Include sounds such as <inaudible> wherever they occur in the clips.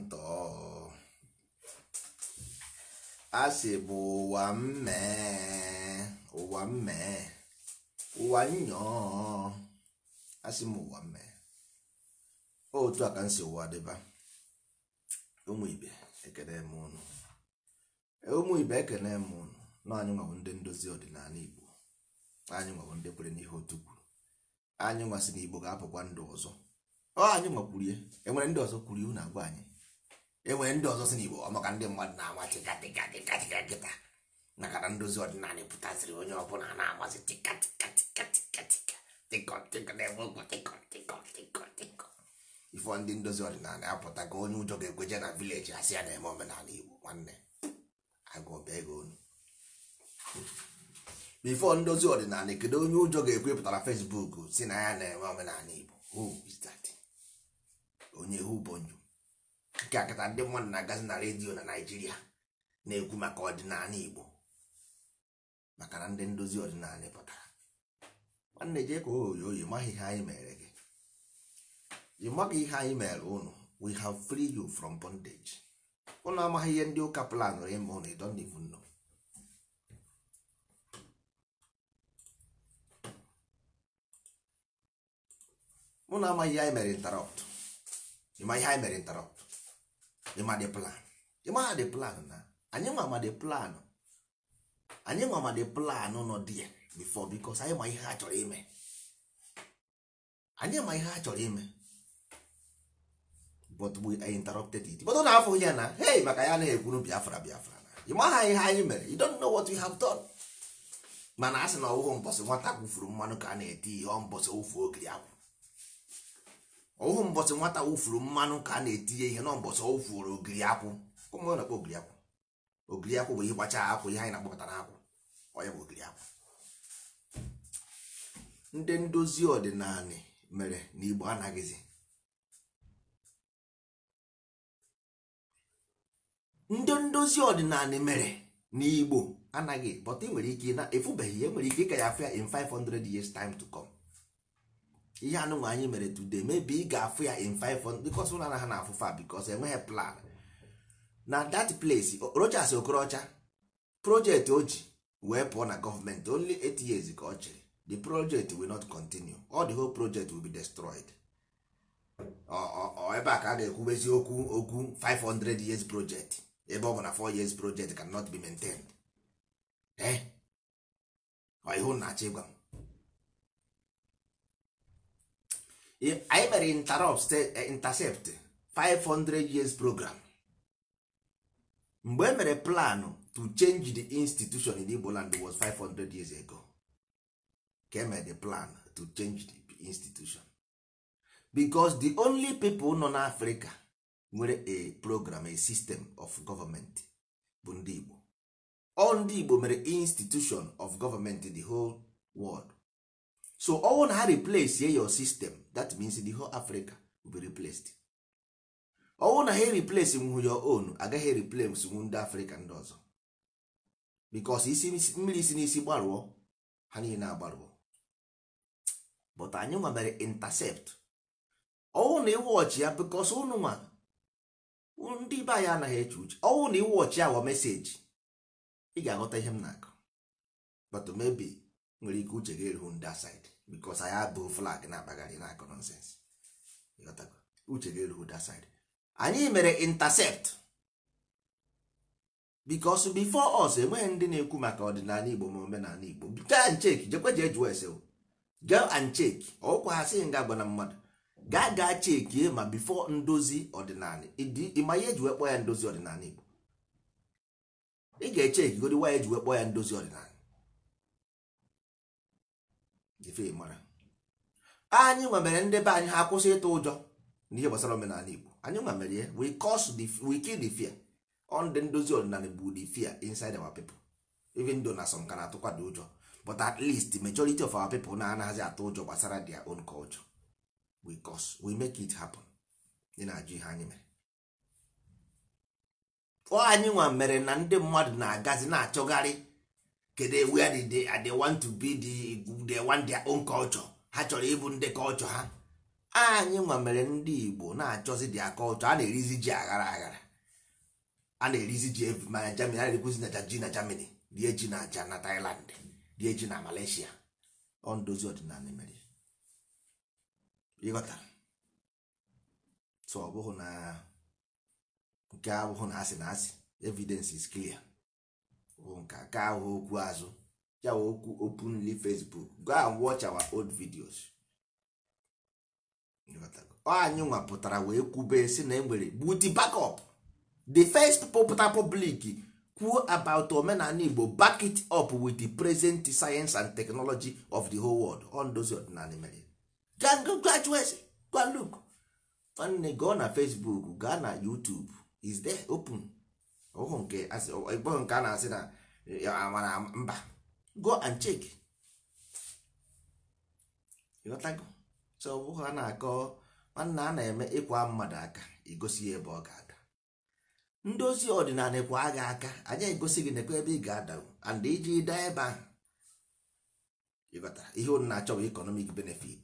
ntọ asị bụ ụwa mmee ụwa mmee ụwa nyọọ asị m ụwa mmee otu a ka m si ụwa dịba ụmụ ibe ekene m ụnụ e, ụmụ ibe ekene m ụnụ na anyị ndị ndozi ọdịnala igbo anyị nwabụ ndị kwere n'ihe otu kwuru anyị nwasị na igbo ga-apụkwa ndụ ọzọ ọ anyị nwa kwurie enwere ndị ọzọ kwuru ihu na-agwa anyị enwere ndị ọzọ si n'Igbo ọmaka ndị mmadụ na-ama tịkatịkatịkatịka nkịta maka na ndozi ọdịnala pụtasịrị onye ọbụla na-amasị tịkatịkatịkatịkatịkọ ndị ndozi ọdịnala apụta ka onye ụjọ ga-ekweje na vileji asị ya na-eme omenala Igbo nwanne agụba ndozi ọdịnala kedu onye ụjọ ga-ekwepụtara Facebook si na ya na-eme omenala Igbo onye who akịka akịta ndị mmadụ na-agazi na redio na naijiria na-ekwu maka ọdịnala igbo maka na ndị ndozi ọdịnala pụtara nwanne jee ka oyi oyi maghị ihe anyị mere gị ị maghị ihe anyị mere ụnụ we have free you from bondage ụnụ amaghị ihe ndị ụka plan ime ụnụ ị don't even know ụnụ amaghị ihe anyị mere interrupt ịma ihe anyị mere interrupt ịmadị plan ịmadị plan na anyị nwa amadị plan anyị plan nọ dị ya bifọ bikos anyị ma ihe a chọrọ ime anyị ma ihe a chọrọ ime but we interrupted it but na afọ ya na hey maka ya na-ekwuru biafra biafra na ịmaha ihe anyị mere you don't know what we have done mana a sị na ọwụghụ mbọsị nwata kwufuru mmanụ ka a na-eti ihe ọ mbọsị ofu ogiri akwụ ọwụhụ mbọsị nwata wụfuru mmanụ ka a na-etinye ihe n'ọmbọsị ọ wụfuru ogiri akwụ ụmụ ọ na-akpọ ogiri akwụ ogiri akwụ bụ ihe gbacha akwụ ihe anyị na-akpọpụta n'akwụ Ọya bụ ogiri akwụ ndị ndozi ọdịnala mere na igbo anaghịzi ndị ndozi ọdịnala mere na igbo anaghị but ị e nwere ike na efubeghị ya e nwere ike ịka ya afọ ya in 500 years time to come ihe anụnwa anyị mere today maybe ị ga-afụ ya in 500 because na ha na afụfa fa because enweghị plan na that place Rochas Okorocha project o ji wee pụọ na gọọmenti only 8 years ka ọ chịrị the project will not continue all the whole project will be destroyed ebe a ka a ga-ekwubezi okwu okwu 500 years project ebe ọ bụ na 4 years project cannot be maintained eh ọ ihu na If anyị mere interrupt intercept 500 years program mgbe emere plan to change the institution in Igbo land was 500 years ago ka emere the plan to change the institution because the only people nọ n'Africa nwere a program a system of government bụ ndị Igbo ọ ndị Igbo mere institution of government in the whole world so ọnwụ na ha replace your system that means the whole africa will be replaced ọnwụ na ha replace nwu your own agaghị replace nwu ndị afrịka ndị ọzọ because isi mmiri si n'isi gbarụọ ha niile agbarụọ but anyị nwa mere intercept ọnwụ na iwe ọchị ya because ụnụnwa ndị be anyị anaghị eche uche ọnwụ na iwe ya awa meseji ị ga-aghọta ihe m na-akụ but maybe nwere ike uche ga-eruhu ndị asaịdị bikos anyị abụghị flag na-akpagharị na-akọ nonsens uche gị erughị da side anyị mere intercept bikos before us eh, enweghị ndị na-ekwu maka ọdịnala igbo ma omenala igbo gaa nchek jekwe jee jụọ ese gaa and chek ọkwa ha sịghị nga agwa na mmadụ gaa gaa chekie ma bifo ndozi ọdịnala ịma ihe eji wee kpọọ ya ndozi ọdịnala igbo ị ga-echeki godi wa eji wee kpọọ ya ndozi ọdịnala anyị nwa mere ndị be anyị ha akwụsị ịtụ ụjọ n'ihe gbasara omenala Igbo anyị nwa ya we cause the we kill the fear on the ndozi ọdịnala bụ the fear inside our people even though na some na-atụkwa dị ụjọ but at least majority of our people na anaghịzi atụ ụjọ gbasara their own culture we cause we make it happen ị na-ajụ ihe anyị mere ọ anyị nwa mere na ndị mmadụ na-agazi na-achọgharị kedu ewu did they, uh, they want to be the, they want their own culture ha chọrọ ịbụ ndị culture ha anyị nwa mere ndị igbo na-achọzi dia culture a na-erizi ji aghara aghara a na-erizi ji mana jamani a na-erikwuzi na ji na jamani rie ji na aja na tailand rie ji na malaysia ọ ndozi ọdịnala mere ịghọtara so ọ na nke abụghị na asị na asị evidence is clear bụ nka ka ahụ okwu azụ yawa okwu openly facebook go and watch our old videos anyị nwa pụtara wee kwube si na enwere gbuti backup the first popular public kwuo about omenala igbo back it up with the present science and technology of the whole world on those ọdịnala mere graduate go and look nwanne gụọ na facebook gaa na youtube is there open ọbụghị nke ịkpọghị nke a na-asị na amara mba go and check ịghọtago so ọ bụghị a na-akọ nwanne a na-eme ịkwa mmadụ aka igosi ya ebe ọ ga-ada ndị ozi ọdịnala kwa agha aka anyị egosi gị nekwa ebe ị ga-adago and iji daa ebe ahụ ịghọtara ihe unu na-achọ bụ economic benefit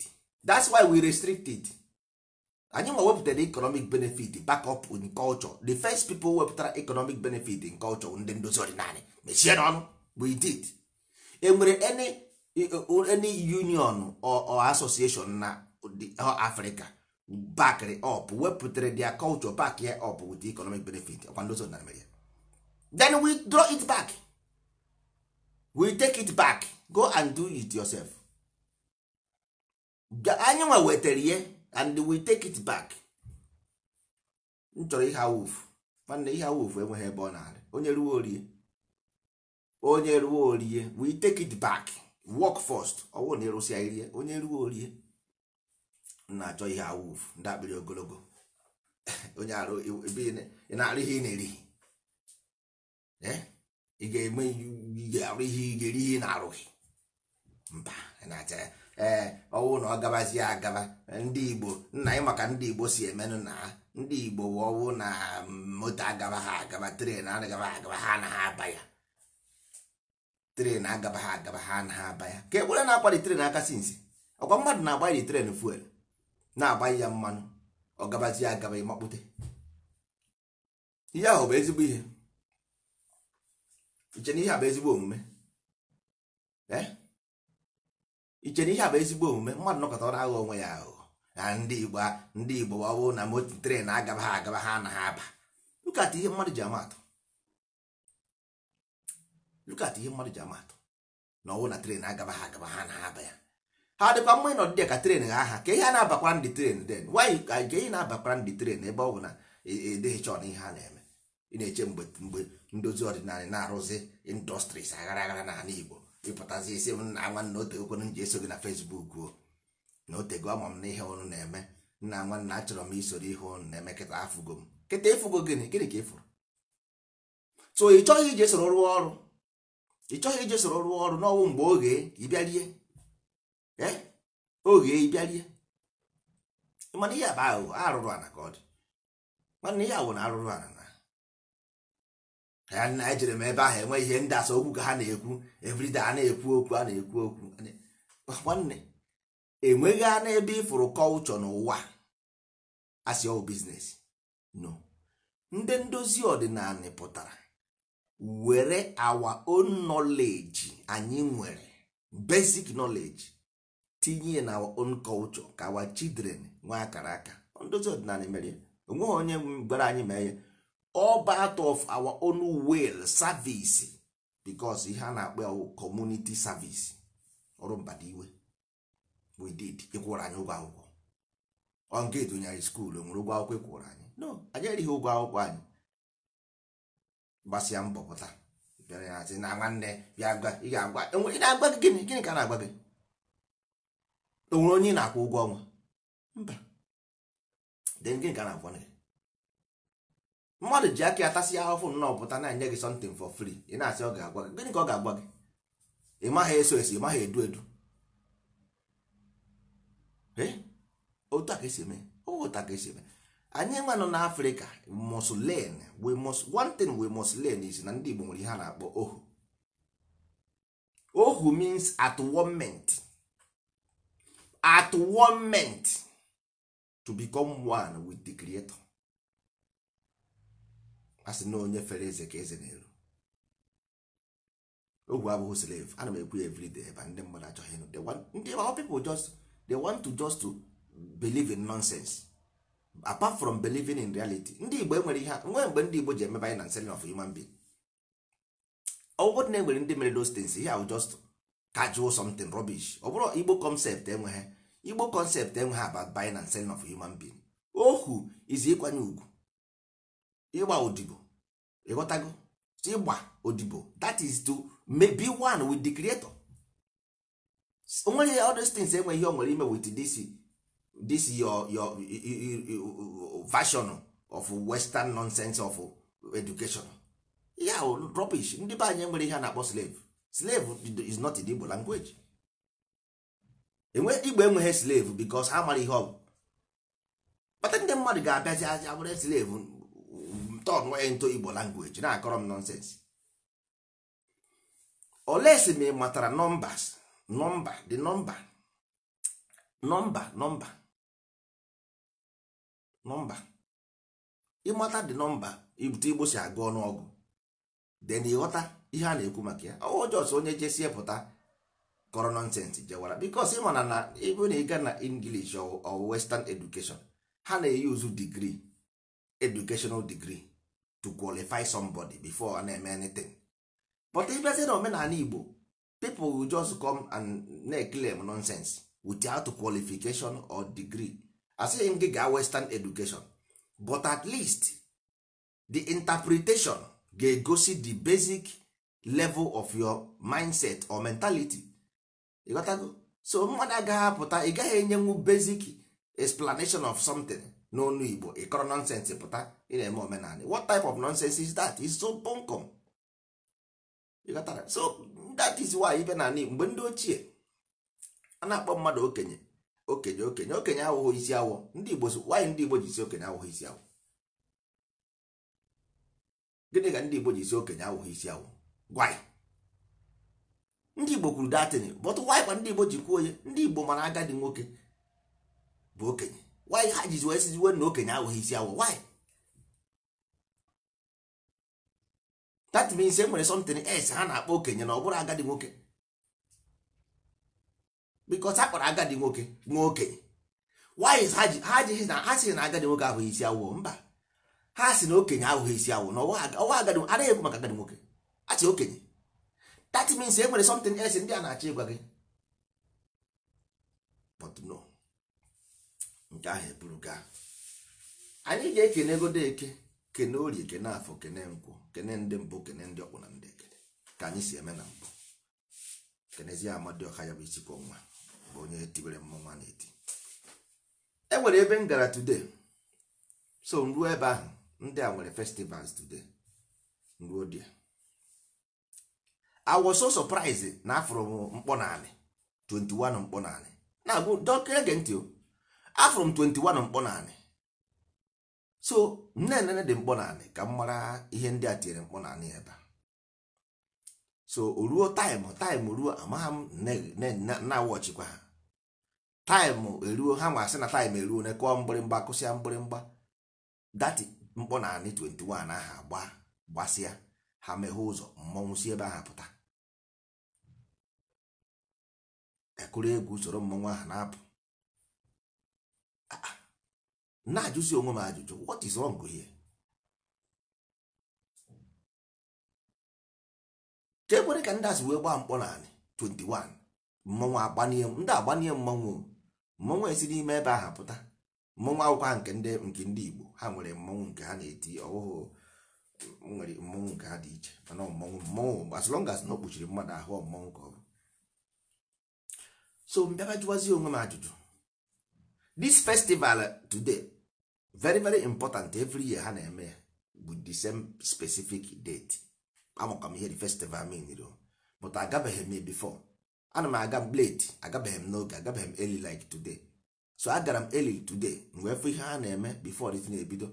that's why we restricted. it. anyị nwa wepụtara economic benefit back up in culture the first people wepụtara economic benefit in culture ndị ndozi ọdịnala mechie n'ọnụ we did enwere nwere e, e, any union or, association na Africa back up wepụtara their culture back ya up with economic benefit ọkwa ndozi ọdịnala mere then we draw it back we take it back go and do it yourself anyị nwa wetara ihe and we take it back m chọrọ ihe awụf mana ihe awụf enweghị ebe ọ na-adị onye ruo orie onye ruo orie we take it back work first ọwụ na ịrụsịa irie onye ruo orie na-achọ ihe awụf ndị akpịrị ogologo <laughs> onye arụ ị na-arụ ihe ị na-erighi eh? ị ga-eme arụ ihe ị ga-eri ihe ị na-arụghị mba na ya ee eh, ọwụ na ọ gabazie agaba ndị igbo nna anyị maka ndị igbo si emenụ na ha ndị igbo ọwụ na mm, moto agaba ha agaba tren agaba ha agaba ha anaghị aba ya tren agaba ha agaba ha anaghị aba ya ka ekwere na-akwali tren aka si nsi ọkwa mmadụ na-agbanyere tren fuel na-agbanye ya mmanụ ọ gabazie agaba ịmakpute ihe ahụ bụ ezigbo ihe iche na ihe a bụ ezigbo omume ee eh? ichere ihe a bụ ezigbo omume mmadụ nọkọta na-aghọ onwe ya aghụghọ na ndị igbo ndị igbo ọ bụrụ na moto tren agaba ha agaba ha anaghị aba lukata ihe mmadụ ji amatụ lukata ihe mmadụ ji amatụ na ọwụ na tren agaba ha agaba ha anaghị aba ya ha dịkwa mma ịnọ dị ka tren ha aha ka ihe a na abakwa ndị tren den wanyị ka nke ị na-abakwara ndị tren ebe ọ bụ na edeghịcha chọọ na ihe ha na-eme ị na-eche mgbe mgbe ndozi ọdịnala na-arụzi indọstris aghara aghara na igbo ịpụtazi isi m na nwanne o tegokwenu m ji eso gị na fesbuk o na o tego ama m na ihe ọnụ na-eme nna nwanne achọrọ m isoro ihe ụnụ na-eme kịta afụgo m kịta ịfụgo gịnị gịnị ka ị so ị chọghị ije soro rụọ ọrụ ị chọghị ije soro rụọ ọrụ n'ọnwụ mgbe oge ịbịarie e? oge ịbịarie mana ihe bụ aghụghọ arụrụ ana ka ọ dị nwanne ihe awụ na arụrụ ana ka ya na ejere m ebe ahụ enwe ihe ndị asa okwu ka ha na-ekwu everyday a na-ekwu okwu a na-ekwu okwu nwanne enweghị anụ n'ebe ịfụrụ kọlchọ n'ụwa asị ọwụ oh, biznes no ndị ndozi ọdịnala pụtara were our own knowledge anyị nwere basic knowledge tinye na our own culture ka children nwee akara aka ndozi ọdịnala mere onweghị onye gwara anyị mee ya all part of our own will service because ihe a na-akpọ community service ọrụ mbadiwe we did ịkwụrụ anyị ụgwọ akwụkwọ onge dụnyere skuul nwere ụgwọ akwụkwọ ịkwụrụ e anyị no anyị erighị ụgwọ akwụkwọ anyị gbasịa mbọ pụta bịara ya sị na nwanne bịa gwa ị ga-agwa ị na-agwa gị gịnị gịnị ka na-agwa gị o onye ị na-akwụ ụgwọ ọnwa mba den gịnị ka na-agwa gị mmadụ ji aka ya tasị ya ahụfụ nnọọ pụta na-enye gị something for free ị na-asị ọ ga-agwa gị gịnị ka ọ ga-agwa gị ị maghị eso esi ị maghị edu edu eh? otu a ka esi eme otu a ka esi eme anyị nwa nọ n'afrịka must learn we must one thing is na ndị igbo nwere ihe a na-akpọ ohu ohu means at one moment at one moment to become one with the creator asị sị na onye fere eze ka eze na-eru ogwe abụghị slave ana m ekwu ya everyday ebe ndị mmadụ achọghị ịnụ ndị our people just they want to just to believe in nonsense apart from believing in reality ndị igbo enwere ihe nwee mgbe ndị igbo ji emebe anyị na selling of human being ọgwụgwọ na enwere ndị mere those things ihe ahụ just casual something rubbish ọ bụrụ igbo concept enweghị igbo concept enweghị about buying and selling of human being ohu izi ịkwanye ugwu ịgba odibo ịghọtago ịgba odibo that is to be one with the creator nwere all these things enwe ihe o nwere ime with this this your your version of western nonsense of education ya rubbish ndị be anyị nwere ihe a na-akpọ slave slave is not a Igbo language enwe Igbo enweghị slave because ha mara ihe ọ bụ kpata ndị mmadụ ga-abịazi aja were slave turn ya into igbo language na-akọrọ m nonsense olesi ma ị matara nọmbas nọmba the nọmba nọmba nọmba nọmba ịmata the nọmba ibute igbo si agụ ọnụọgụ then ịghọta ihe a na-ekwu maka ya ọjọs onye jesie pụta kọrọ nonsense jewara because ịmana na ebe na ịga na English or western education ha na-eyuzu degree educational degree to qualify somebody before eme anything but ịbịazie na omenala igbo people will just come and na-eclaim nonsense without qualification or degree asịghị m gị ga western education but at least the interpretation ga-egosi the basic level of your mindset or mentality ịghọtago so mmadụ agaghị apụta ị gaghị enyenwu basic explanation of something n'onu igbo ịkọrọ nọnsensị pụta ị na-eme omenala what type of nonsense is that is so bunkum ịghọtara so that is why ibe na mgbe ndị ochie a na-akpọ mmadụ okenye okenye okenye okenye awụghị isi awọ ndị igbo wanyị ndị igbo ji isi okenye awụghị isi awọ gịnị ka ndị igbo ji isi okenye awụghị isi awọ gwanyị ndị igbo kwuru datin bọtụ wanyị kwa ndị igbo ji kwuo onye ndị igbo mana agadi nwoke bụ okenye wanyị ha jizi wee siziwe na okenye ahụghị isi awọ wanyị that means e nwere something else ha na-akpọ okenye na ọ bụrụ agadi nwoke because a kpọrọ agadi nwoke nwa okenye wanyị ha jighị na ha sịrị na agadi nwoke ahụghị isi awọ mba ha si na okenye ahụghị isi awọ na ọwa agadi adịghị ekwu maka agadi nwoke a sị okenye that means e nwere something else ndị a na-achọ ịgwa gị but no nke ahụ eburu gaa anyị ga-ekene godo eke kene orie kene afọ kene nkwụ kene ndị mbụ kene ndị ọkwụ na ndị ekele ka anyị si eme na mbụ kenezie amadioka ya bụ isikwa ọnwa bụ onye tiwere mmọnwa na-eti e nwere ebe m gara today so m ruo ebe ahụ ndị a nwere festivals today m ruo dia I so surprised na afụrụ m mkpọ naanị 21 mkpọ naanị na-agụ dọkịta ege ntị o afụrụ m 21 mkpọ naanị so nnenne dị mkpọ naanị ka m mara ihe ndị a tinyere mkpọ naanị ebe so o ruo taịmụ taịm ruo amagha m na wọchịkwa ha taịmụ eruo ha nwa asị na taịmụ eruo na kụọ mgbịrịmgba kụsịa mgbịrịmgba dati mkpọ naanị 21 aha agba gbasịa ha meghe ụzọ mmọnwụ si ebe ahụ pụta ekụrụ egwu usoro mmọnwụ ahụ na-apụ na ajụzi onwe m ajụjụ what is wrong here ka ekwere ka ndị asị wee gbaa mkpọ naanị 21 mmanwụ agbanie ndị agbanie mmọnwụ mmanwụ esi n'ime ebe ahụ pụta mmanwụ akwụkwọ nke ndị nke ndị Igbo ha nwere mmọnwụ nke ha na-eti ọhụhụ nwere mmọnwụ nke ha dị iche mana mmọnwụ mmanwụ as long as na ọ kpuchiri mmadụ ahụ mmanwụ ka ọ bụ so mbịaba jụwazie onwe m ajụjụ this festival today very very important every year ha na-eme with bụ the same specific date amakwa m ihe the festival mean but agabeghị m before ana m aga m late agabeghị m n'oge agabeghị m early like today so agara m early today wee fụ ihe ha na-eme before dị na-ebido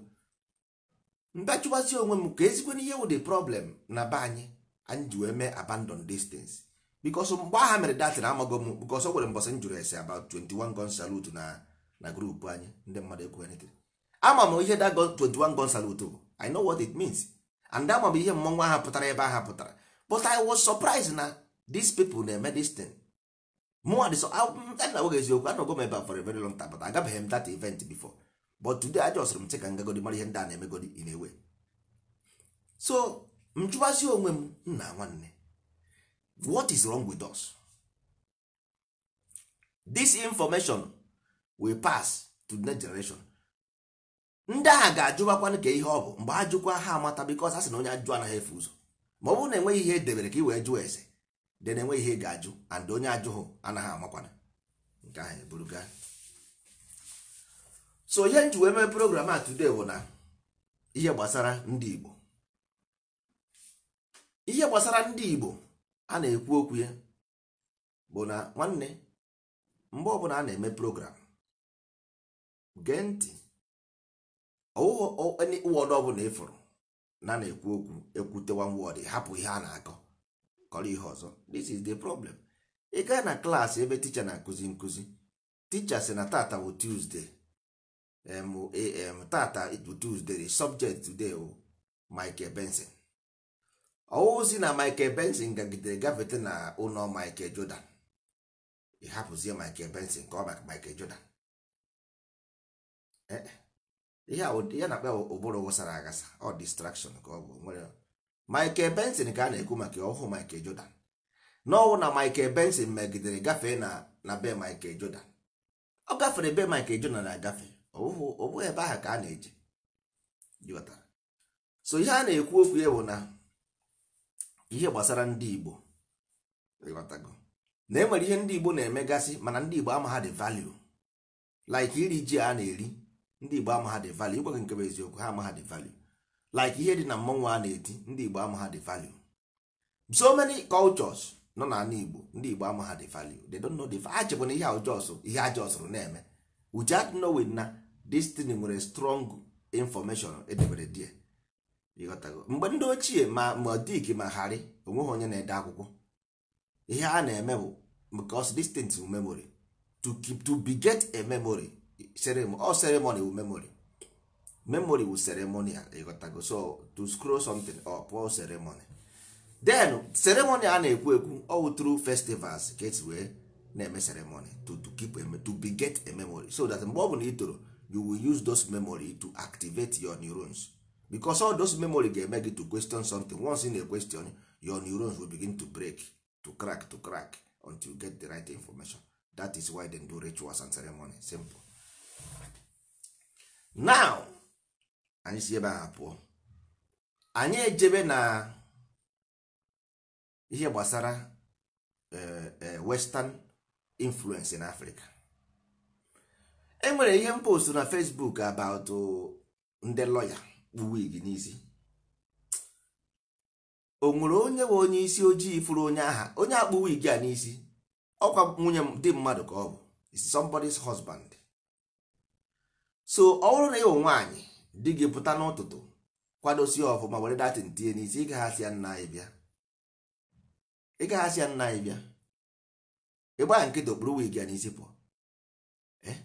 mbachiwazi onwe m ka ezigbo n'ihe wụ the problem na be anyị anyị ji wee mee abandon distance because mgbe agha mere datin amago m because o nwere mbọsị m jụrụ ese about 21 gun salute na na grupu anyị ndị mmadụ ekwu anything ama m ihe that 21 gun salute bụ i know what it means and ama m ihe mmọnwụ ahụ pụtara ebe aha pụtara but i was surprised na these people na-eme this thing mụnwa dị so na nwoge eziokwu anọgo m ebe a for a very long time but agabeghị m that event before but today a jọsịrị m sị ka ngagodi mara ihe ndị a na-emegodi in a way so m chụbazi onwe m nna nwanne what is wrong with us this information we pass to the next generation ndị agha ga-ajụbakwanụ ka ihe ọ bụ mgbe a jụkwa ha amata bikos a sị na onye ajụ anaghị efe ụzọ ma ọ bụrụ na enweghị ihe edebere ka i wee jụọ ese dị na enweghị ihe ga-ajụ and onye ajụhụ anaghị amakwana nke ahụ eburu so ihe nji wee mee program a today bụ na ihe gbasara ndị Igbo ihe gbasara ndị Igbo a na-ekwu okwu ya bụ na nwanne mgbe ọbụla a na-eme program gee ntị wọdụ ọbụla ịfụrụ na na-ekwu okwu ekwutewa wọdụ hapụ ihe a na-akọ kọrọ ihe ọzọ this is the problem ị gaa na klaasị ebe ticha na-akụzi nkụzi ticha sị na tata bụ tuzdee tata bụ tuzdee subject today o michael benson si na michael benson gagidere gafete na ụlọ michael jordan ị hapụzie michael benson ka ọ maka michael jordan Eh, eh. ihe a na-akpa ụbụrụ wụsara aghasa ọ distraction ka ọ bụ nwere Michael Benson ka a na-ekwu maka ọhụụ Michael Jordan n'ọnwụ na Michael Benson megidere gafee na na be Michael Jordan ọ gafere be Michael Jordan na-agafe ọ bụghị ebe ahụ ka a na-eje so ihe a na-ekwu okwu ya bụ na ihe gbasara ndị Igbo na enwere ihe ndị Igbo na-emegasị mana ndị Igbo ama ha dị value like iri ji a na-eri ndị igbo ama ha dị value ịgwa gị nke bụ eziokwu ha ama ha dị value like ihe dị na mmọnwụ a na-eti ndị igbo ama ha dị value so many cultures nọ na ala igbo ndị igbo ama ha dị value they don't know the value achịbụ na ihe ajọs ihe ajọsụrụ na-eme we just know na destiny nwere strong information edebere die ịghọtago mgbe ndị ochie ma ma modik ma harị onweghị onye na-ede akwụkwọ ihe a na-eme bụ because distant memory to keep to be get a memory all ceremony wu memory memory wu ceremonial ah, ịghọtago so to scroll something up all ceremony then ceremony a na-ekwu ekwu all through festivals get esi wee na-eme ceremony to, to keep a, to beget a memory so that mgbe ọ bụla ị you will use those memory to activate your neurons because all those memory ga-eme gị to question something once in a question your neurons will begin to break to crack to crack until you get the right information that is why they do rituals and ceremony simple now anyị si ebe ahụ pụọ anyị ejebe na ihe gbasara eh, eh, western influence na Africa enwere ihe mpost na Facebook about ndị lọya kpu wig n'isi o nwere onye nwe onye isi ojii furu onye aha onye akpụ wig a n'isi ọkwa nwunye dị mmadụ ka ọ bụ is somebody's husband so ọ bụrụ na ịwụ nwaanyị di gị pụta n'ụtụtụ kwadosi ọfụma were datin tinye n'isi ịgaghasị ya nna anyị bịa ịgaghasị ya nna anyị bịa ịgba nkịtị okpuru wig ya n'isi pụọ eh?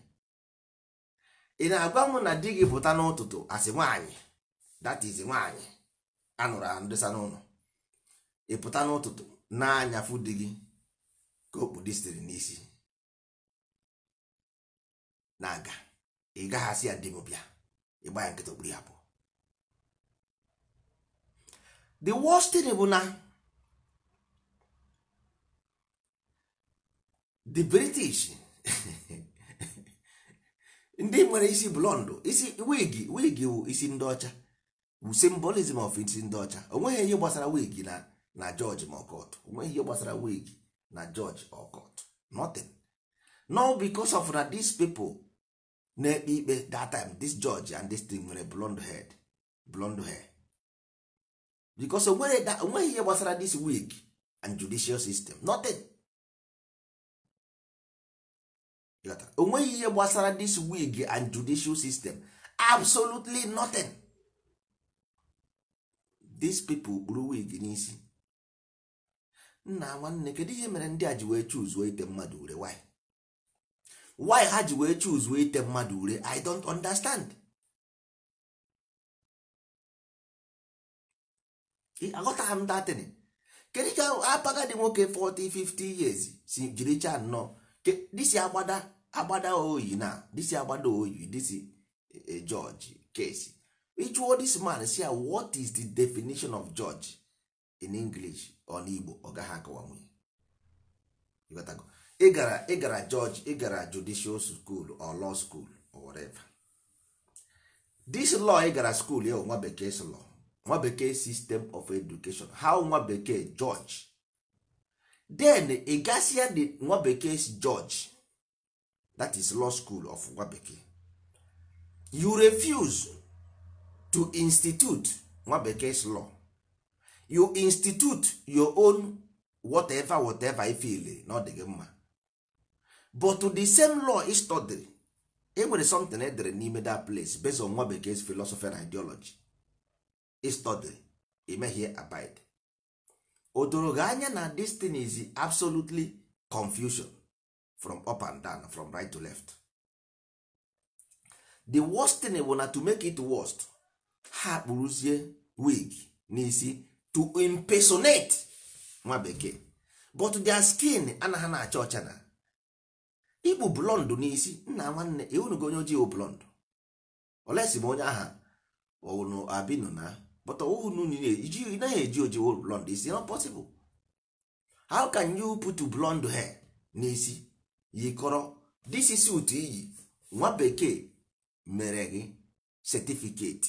ị na-agwa m na di gị pụta n'ụtụtụ asị nwaanyị datiz nwaanyị anụrụ andịsa n'ụlọ ị pụta n'ụtụtụ na di gị ka okpu okpudisiri n'isi na-aga ị gaghasi ya dibụbịa ịgba ya nkịta okpuru ya bụ the worst thing bụ na the british <laughs> ndị nwere isi blọndụ isi wig wig wụ isi ndị ọcha wụ symbolism of isi ndị ọcha onweghị ihe gbasara wig na na george ma ọkọt onweghị ihe gbasara wig na george ọkọt nothing no because of na these people na-ekpe ikpe that time this judge and this thing nwere blond head blond hair because onweghị ihe gbasara this wig and judicial system nothing onweghị ihe gbasara this wig and judicial system absolutely nothing these people gburu wig n'isi nna nwanne kedu ihe mere ndị a ji wee chuzuo ite mmadụ ure why. why ha ji wee chuz wee ite mmadụ ure i don't understand aghọtaghị m datin kedu ka apaga dị nwoke 40 50 years si jiri cha nnọọ disi agbada agbada oyi na disi agbada oyi disi eh, eh, George Kesi ịchụọ this man si what is the definition of George in English on Igbo ọ gaghị akọwa nwunye ị gara ị gara judge ị gara judicial school or law school or whatever this law ị gara school ya nwa bekee law nwa bekee system of education how nwa bekee judge then ị gasịa the nwa bekee judge that is law school of nwa bekee you refuse to institute nwa bekee law you institute your own whatever whatever ifile na ọ dị gị mma but to the same law he study e nwere something edere n'ime that place based on nwa bekee's philosophy and ideology he study emehie may here abide. gị anya na this thing is absolutely confusion from up and down from right to left the worst thing bụ na to make it worst ha kpụrụzie wig n'isi to impersonate nwa bekee but their skin anaghị na-acha ọcha na ikpu blọndụ n'isi nna nwanne ịhụnugo e onye ojii blọndụ olesi ma onye aha unu abinu na bọta unu ị naghị eji oji blọnd isi not possible how can you put blọndụ hair n'isi yikọrọ this is suit iyi nwa bekee mere gị certificate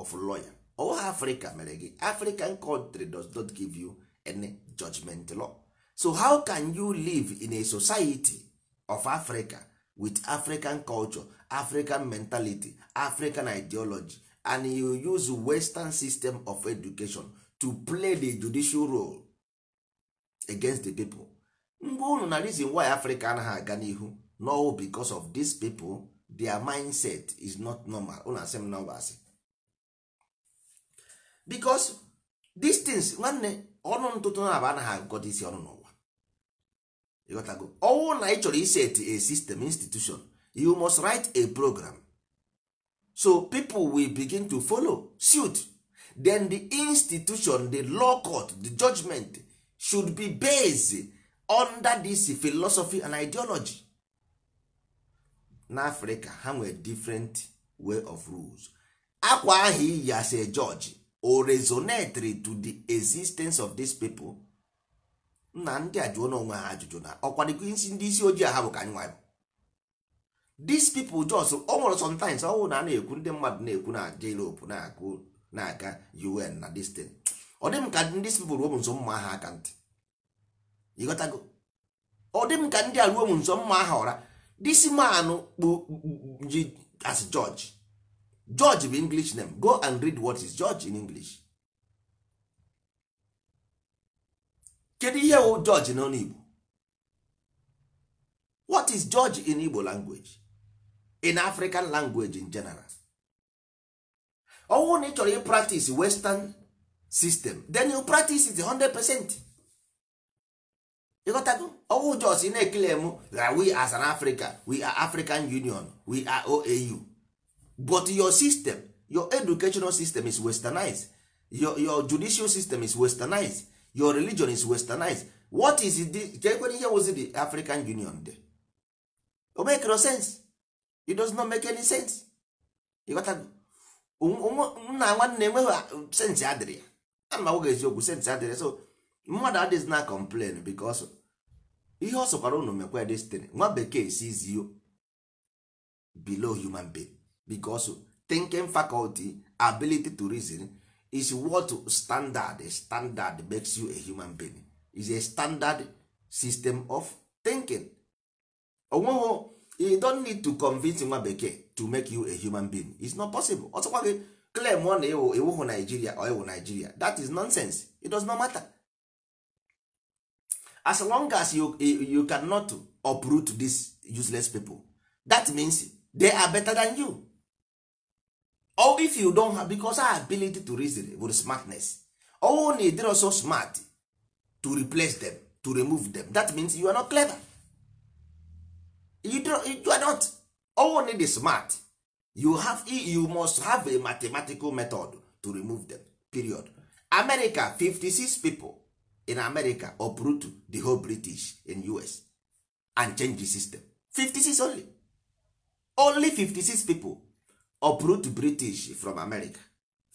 of lawyer ọwụwa africa mere gị african country does not give you any judgment law so how can you live in a society of africa with african culture african mentality african ideology and you use western system of education to play the judicial role against the people mgbe unu na reason why africa anaghị aga n'ihu no because of these people their mindset is not normal unu asị m nọmba because these things nwanne ọnụ ntụtụ na aba anaghị agụkọta isi ọnụ ịghọtago ọwụ na ị chọrọ iset a system institution you must write a program so people will begin to follow suit then the institution the law court the judgment should be based under this philosophy and ideology n'afrịka ha nwere different way of rules akwa ahụ iyi o resonatory to the existence of these people nna ndị a jụọ n'onwe ha ajụjụ na ọkwadịgo isi ndị isi ojii ha bụ ka anyị nwa Dis these people ọ nwere sometimes ọnwụ na a na-ekwu ndị mmadụ na-ekwu na Europe na-akụ na-aga UN na distin ọ dị m ka ndị people ruo m nso mma aha aka ntị ịghọtago ọ dị m ka ndị a ruo m nso mma aha ọra this man ji as George George bụ English name go and read what is George in English kedu ihe wụ jọji n'ọnụ what is judge in igbo language in african language in general ọnwụ na ị chọrọ ị practice western system then you practice it 100 percent ịghọtago ọnwụ jos ị na-ekele m we as an africa we are african union we are oau but your system your educational system is westernized your, your judicial system is westernized your religion is westernized what is it kekwere ihe wozi the african union de o make no sense it does not make any sense ịghọtago nna nwanne enweghị sense adịrị ya ana m agwaghị eziokwu sense adịrị so mmadụ adịghị na complain because ihe ọ sọkwara unu mekwa destiny nwa bekee sees you below human being because thinking faculty ability to reason is what standard standard makes you a human being is a standard system of thinking onweghị you don't need to convince nwa bekee to make you a human being it's not possible ọtụkwa gị claim ọ na ịwụhụ Nigeria or ịwụ Nigeria that is nonsense it does not matter as long as you, you cannot uproot these useless people that means they are better than you all if you don't have because our ability to reason with smartness all na ịdịrọ so smart to replace them to remove them that means you are not clever you, you are not all need is smart you have you must have a mathematical method to remove them period america 56 people in america uproot the whole british in us and change the system 56 only only 56 people uproot british from america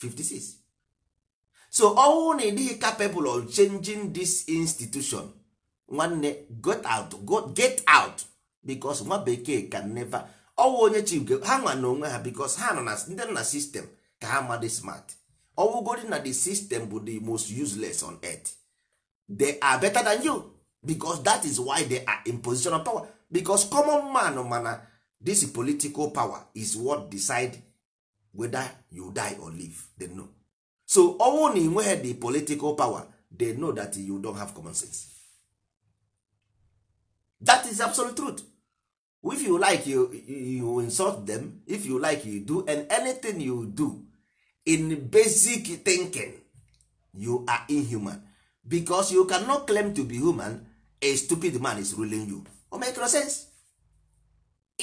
56 so ọnwụ na ịdịghị capable of changing this institution nwanne get out get out because nwa bekee can never ọnwụ onye chi ha nwa na onwe ha because ha nọ na ndị nọ na system ka ha madị smart ọwụgodi na the system bụ the most useless on earth they are better than you because that is why they are in position of power because common man mana this political power is what decide whether you die or live they know so ọnwụ na inweghị the political power they know that you don't have common sense that is absolute truth if you like you, you insult them if you like you do and anything you do in basic thinking you are inhuman because you cannot claim to be human a stupid man is ruling you o make no sense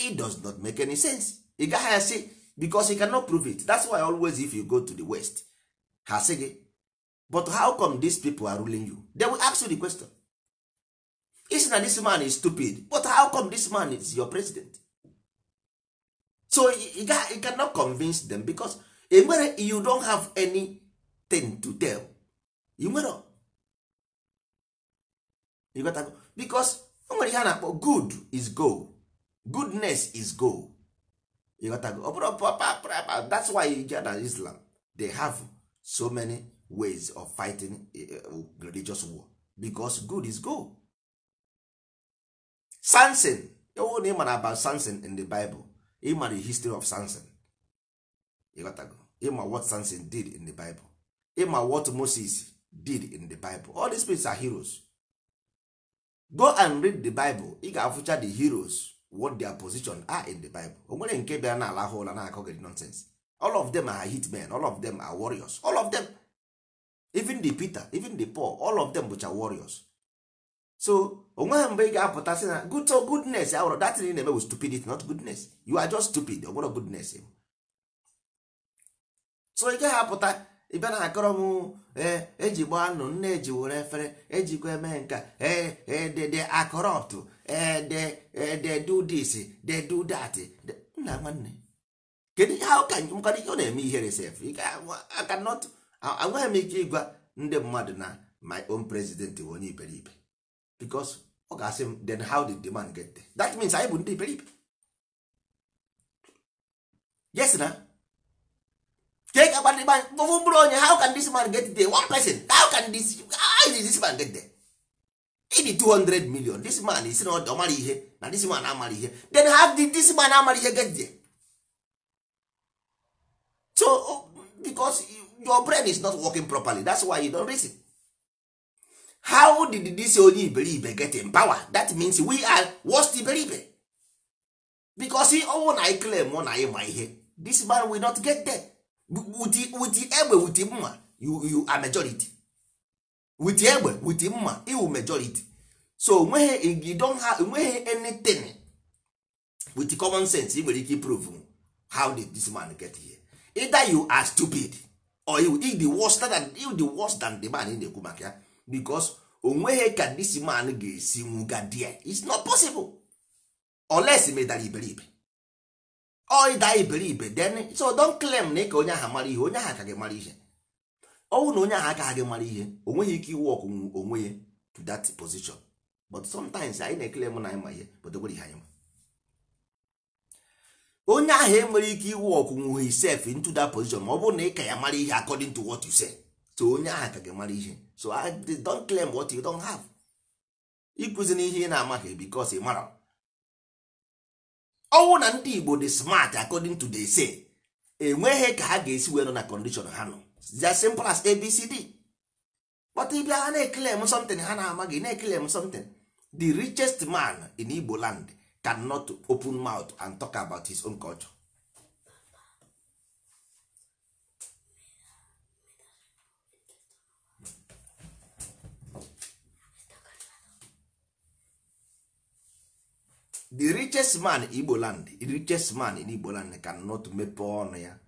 it does not make any sense ị gaghị asị because he cannot prove it that's why always if you go to the west ha sị gị but how come these people are ruling you they will ask you the question is na this man is stupid but how come this man is your president so you, you cannot convince them because enwere you don't have anything to tell you nwere you got to, because o nwere ihe a na-akpọ good is go goodness is go. ịghọtago ọ bụrụ papa that's why you get na islam they have so many ways of fighting eh, eh, religious war because good is gold samson ewu na ịmara about samson in the bible ịmara the history of samson ịghọtago ịma what samson did in the bible ịma what moses did in the bible all these people are heroes go and read the bible ị ga-afụcha the heroes what their position are in the bible o nwere nke be na alahụ ụla na-akọ gị nonsense all of them are hitmen all of them are warriors all of them even the peter even the paul all of them bụcha warriors so onweghị mgbe ị ga-apụta sị na good so goodness awụrụ datin ị na-eme with stupidity not goodness you are just stupid ọ nwere goodness so ị gaghị apụta ị na-akọrọ m ee eji gbaa anụ nne eji were efere ejikwa eme nka ee ee dede ọtụ. they eh, eh, do this they do that nna nwanne kedu ihe ahụ ka mkpara ihe ọ na-eme ihere sef akanọt agwaghị m ike ịgwa ndị mmadụ na my own president bụ onye iberibe because ọ ga-asị m then how did the man get there that means anyị bụ ndị iberibe yes na ke ka kpadịgba mkpụrụ onye how can this man get there one person how can this how is this man get there ịdị 200 million this man is not ọ mara ihe na this man amara ihe then how did this man amara ihe get there? so oh, because your brain is not working properly that's why you don't reason how did this onye iberibe get in power that means we are worst iberibe because he ọnwụ na claim, claim na anyị ma ihe this man will not get there with the egbe with the mma you, you are majority with egbe with mma iwu majority so when you don't have anything with common sense ị nwere ike prove how did this man get here either you are stupid or you the worst than you the worst than the man in the na-ekwu maka ya because onweghị ka this man ga-esi nwuga there it's not possible unless medara iberibe or ịda iberibe then so don't claim na ka onye ahụ mara ihe onye ahụ ka gị mara ihe ọnwụ na onye ahụ aka gị mara ihe o nweghị ike iwu ọkwụ onwe ya to that position but sometimes anyị na-ekele m na anyị ma ihe but onwere ihe anyị ma onye ahụ enwere ike iwu ọkwụnwe hisef into that position ma ọ bụrụ na ị ka ya mara ihe according to what you say so onye ahụ ka gị mara ihe so I don't claim what you don't have ịkụzi na ihe ị na-amaghị because ị mara ọnwụ na ndị Igbo dị smart according to the say enweghị ka ha ga-esi wee nọ na condition ha nọ the simple as abcd but ị bịa ha na-eclaim something ha na-amaghị na claim something the richest man in Ibo land cannot open mouth and talk about his own culture the richest man in igbo land the richest man in igbo land cannot make ọnụ ya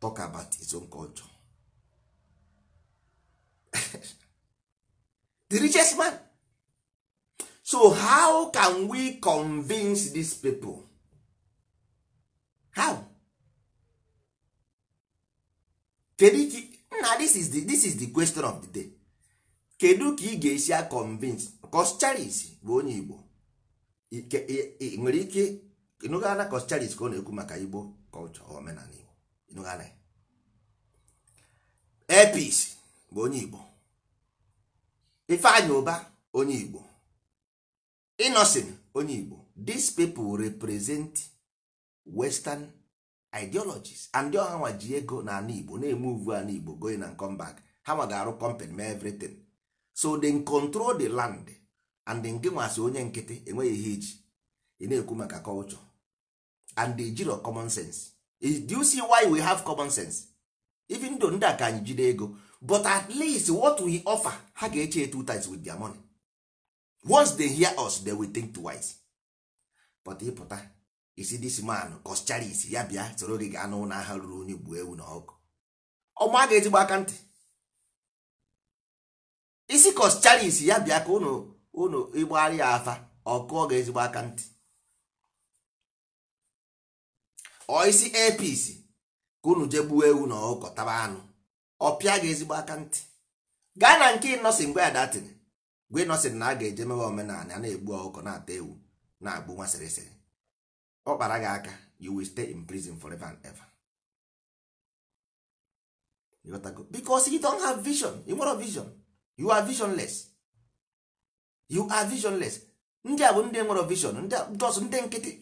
talk about its own culture <laughs> the richest man so how can we convince these people how kedu na this is the, this is the question of the day kedu ka ị ga-esi convince cos charis bụ onye igbo nwere ike nụgara cos charis ka ọ na-ekwu maka igbo culture omenala igbo Epis bụ onye Igbo Ifeanyi Uba onye Igbo Innocent onye Igbo these people represent western ideologies and ndị nwaji ego na ala Igbo na-eme uvu ala Igbo going and come back ha ma ga-arụ company ma everything so they control the land and nke nwasị onye nkịtị enweghị ihe iji ị na-ekwu maka culture and the jiro common sense do you see why we have common sense even though ndị a ka anyị jide ego but at least what we offer ha ga-eche two times with their money once they hear us they will think twice but ịpụta isi this man kọschara isi ya bịa soro gị gaa n'ụlọ agha ruru onye gbuo ewu na ọkụ ọma ga-ezigbo aka ntị isi kọschara isi ya bịa ka ụnụ ụnụ ịgbagharị ya afa ọkụ ọ ga-ezigbo aka ntị oisi isi apc ka unu jee gbuo ewu na ọkọ taba anụ ọpịa pịa gị ezigbo aka ntị gaa na nke ịnọsị mgbe ada tiri gwe ịnọsịrị na a ga-eje mewe omenala na-egbu ọkụkọ na-ata ewu na-agbụ nwa sịrịsịrị ọ kpara gị aka you will stay in prison forever and ever because you don't have vision you nwere vision you are visionless you are visionless ndị a bụ ndị nwere vision ndị ndị nkịtị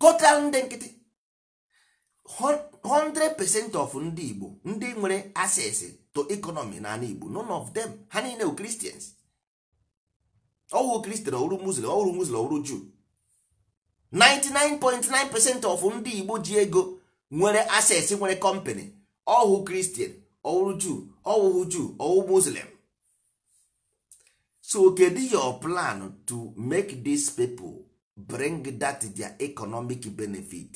total ndị nkịtị 100% of ndị Igbo ndị nwere access to economy na ala Igbo none of them ha niile bụ Christians ọwụ Christian ọwụrụ Muslim ọwụrụ Muslim ọwụrụ Jew 99.9% of ndị Igbo ji ego nwere access nwere company ọwụ Christian ọwụrụ Jew ọwụhụ Jew ọwụ Muslim so kedu your plan to make these people bring that their economic benefit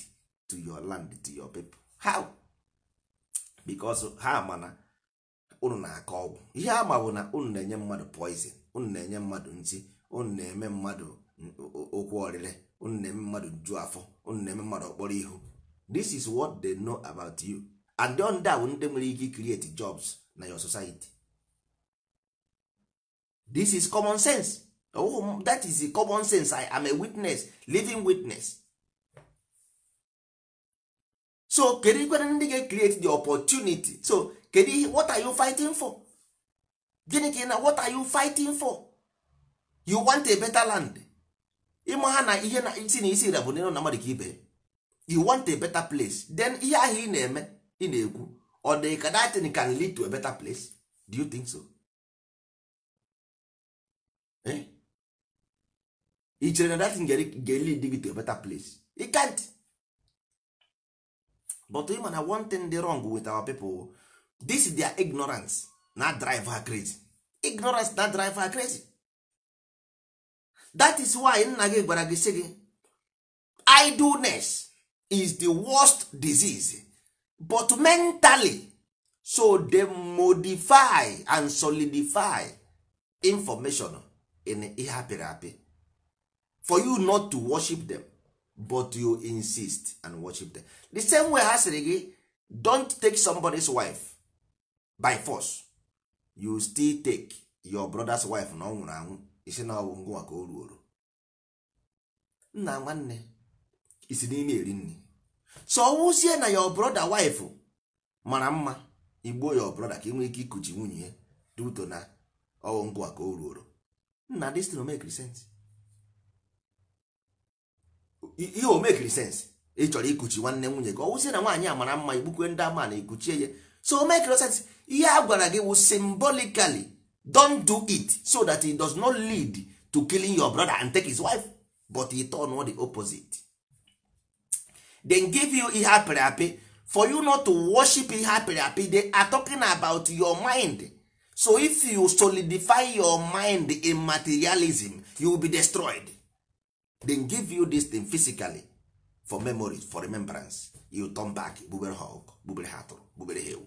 to your land to your people how because ha na unu na-akọ ọgwụ ihe a ma bụ na unu na-enye mmadụ poison unu na-enye mmadụ nsi, unu na-eme mmadụ okwu ọrịre unu na-eme mmadụ ju afọ unu na-eme mmadụ ọkpọrọ ihu this is what they know about you and ndị a bụ ndị nwere ike create jobs na your society this is common sense oh, that is common sense I am a witness living witness so kedu ikwere ndị ga-ecreate the opportunity so kedu ihe what are you fighting for gịnị ka ị na what are you fighting for you want a better land ịma ha na ihe na isi na isi ira bụ na mmadụ ka ibe you want a better place then ihe ahụ ị na-eme ị na-ekwu ọ dị ka that thing can lead to a better place do you think so eh? ị chere na that thing ga-lead gị to a better place it can't but ị mana one thing dị wrong with our people this is their ignorance na drive her crazy ignorance na drive her crazy that is why nna gị gwara gị sị gị idleness is the worst disease but mentally so they modify and solidify information in ihe apịrị apị for you not to worship them but you insist and worship them the same way ha sịrị gị don't take somebody's wife by force you still take your brother's wife na ọ nwụrụ anwụ isi na ọwụ ngwa ka o ruoro nna nwanne isi n'ime eri nri so ọwụzie na your brother wife mara mma igbuo your brother ka ị nwee ike ikuchi nwunye dị ụtọ na ọwụ ngwa ka o ruoro nna this no make ihe make mekiri sens ị chọrọ ikuchi nwanne nwunye gị ọwụzie na nwaanyị a mara mma igbukwe ndị ama na ikuchie ya so o mekiri sens ihe a gwara gị wụ symbolically don't do it so that it does not lead to killing your brother and take his wife but he turn the opposite then give you ihe apịrị apị for you not to worship ihe apịrị apị they are talking about your mind so if you solidify your mind in materialism you will be destroyed they give you this thing physically for memory for remembrance you turn back gbubere ha ọkụ gbubere ha atụrụ gbubere ha ewu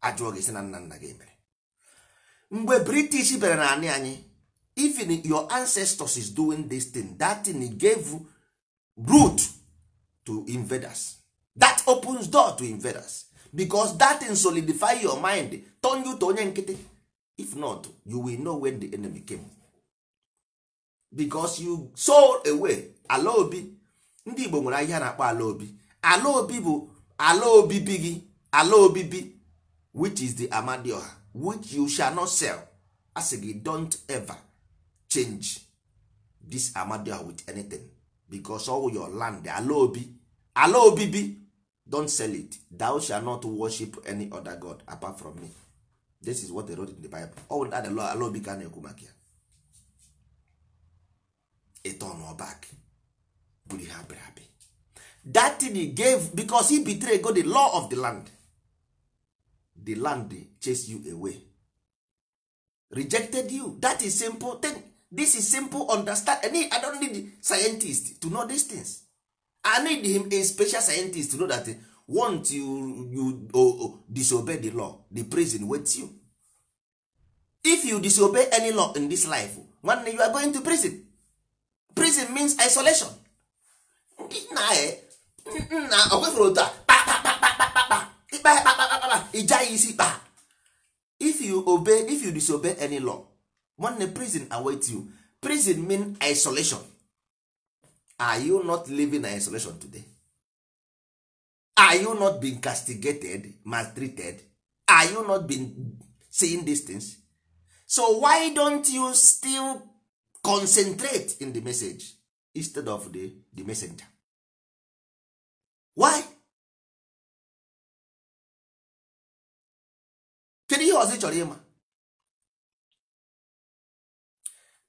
ajụọ gị si na nna nna gị mere mgbe british bịara na anị anyị even your ancestors is doing this thing that thing gave root to invaders that opens door to invaders because that thing solidify your mind turn you to onye nkịtị if not you will know when the enemy came because you so away ala obi ndị Igbo nwere ahịa na-akpọ ala obi ala obi bụ ala obibi gị ala obibi which is the amadioha which you shall not sell asị gị don't ever change this amadioha with anything because all your land ala obi ala obibi don't sell it thou shall not worship any other god apart from me this is what they wrote in the bible ọ bụ ala obi ka na-ekwu maka ya a back bụrụ ihe happy. Happy. that thing he gave because he betrayed God the law of the land the land chase you away rejected you that is simple thing this is simple understand I, need, I don't need scientist to know these things I need him a special scientist to know that eh, once you, you oh, oh, disobey the law the prison waits you if you disobey any law in this life nwanne you are going to prison prison means isolation nna nna otu a ịja ya isi kpa if you obey if you disobey any law nwanne prison awaits you prison mean isolation are you not living in isolation today are you not being castigated maltreated are you not being seeing these things so why don't you still concentrate in the message instead of the, the messenger why kedu ihe ọzọ ị chọrọ ịma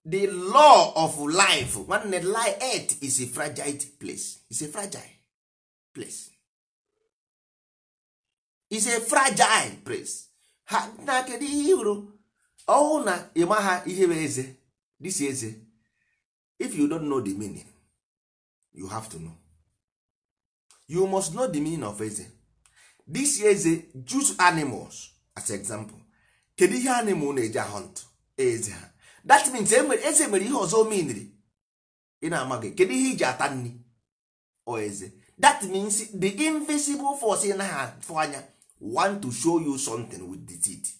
the law of life nwanne life earth is a fragile place is a fragile place is a fragile place ha na kedu ihe hụrụ ọwụ na ịma ha ihe bụ eze this eze if you don't know the meaning you have to know you must know the meaning of eze this eze juice animals as example kedu ihe animal na-eji hunt eze ha that means e eze mere ihe ọzọ omeniri ị na-amaghị kedu ihe iji ata nri o eze that means the invisible force na ha afụ anya want to show you something with the teeth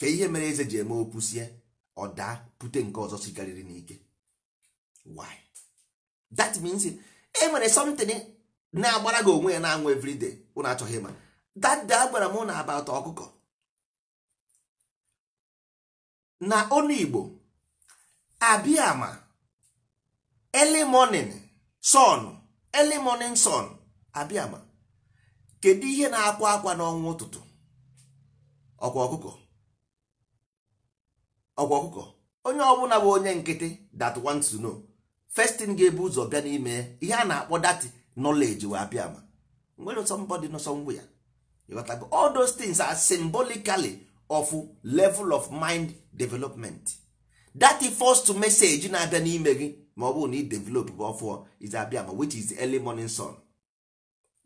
ka ihe mere eze ji eme opusie ọ daa bute nke ọzọ sigarịrị n'ike why that means e eh, nwere something na-agbara gị onwe ya na-anwụ everyday ụnụ achọghị ma that day gwara m na about ọkụkọ na onu Igbo abịa ma early morning sun early morning abịa kedu ihe na-akwa akwa n'ọnwa ụtụtụ ọkwa ọkụkọ ọkwa ọkụkọ onye ọbụla bụ onye nkịtị that wants to know first thing ga-ebu ụzọ bịa n'ime ihe a na-akpọ that knowledge wee apịa ma nwere somebody nọ somewhere ya all those things are symbolically of level of mind development that first message na-abịa n'ime gị ma ọ bụrụ na ị develop bụ ọfụọ is abịa ma which is early morning sun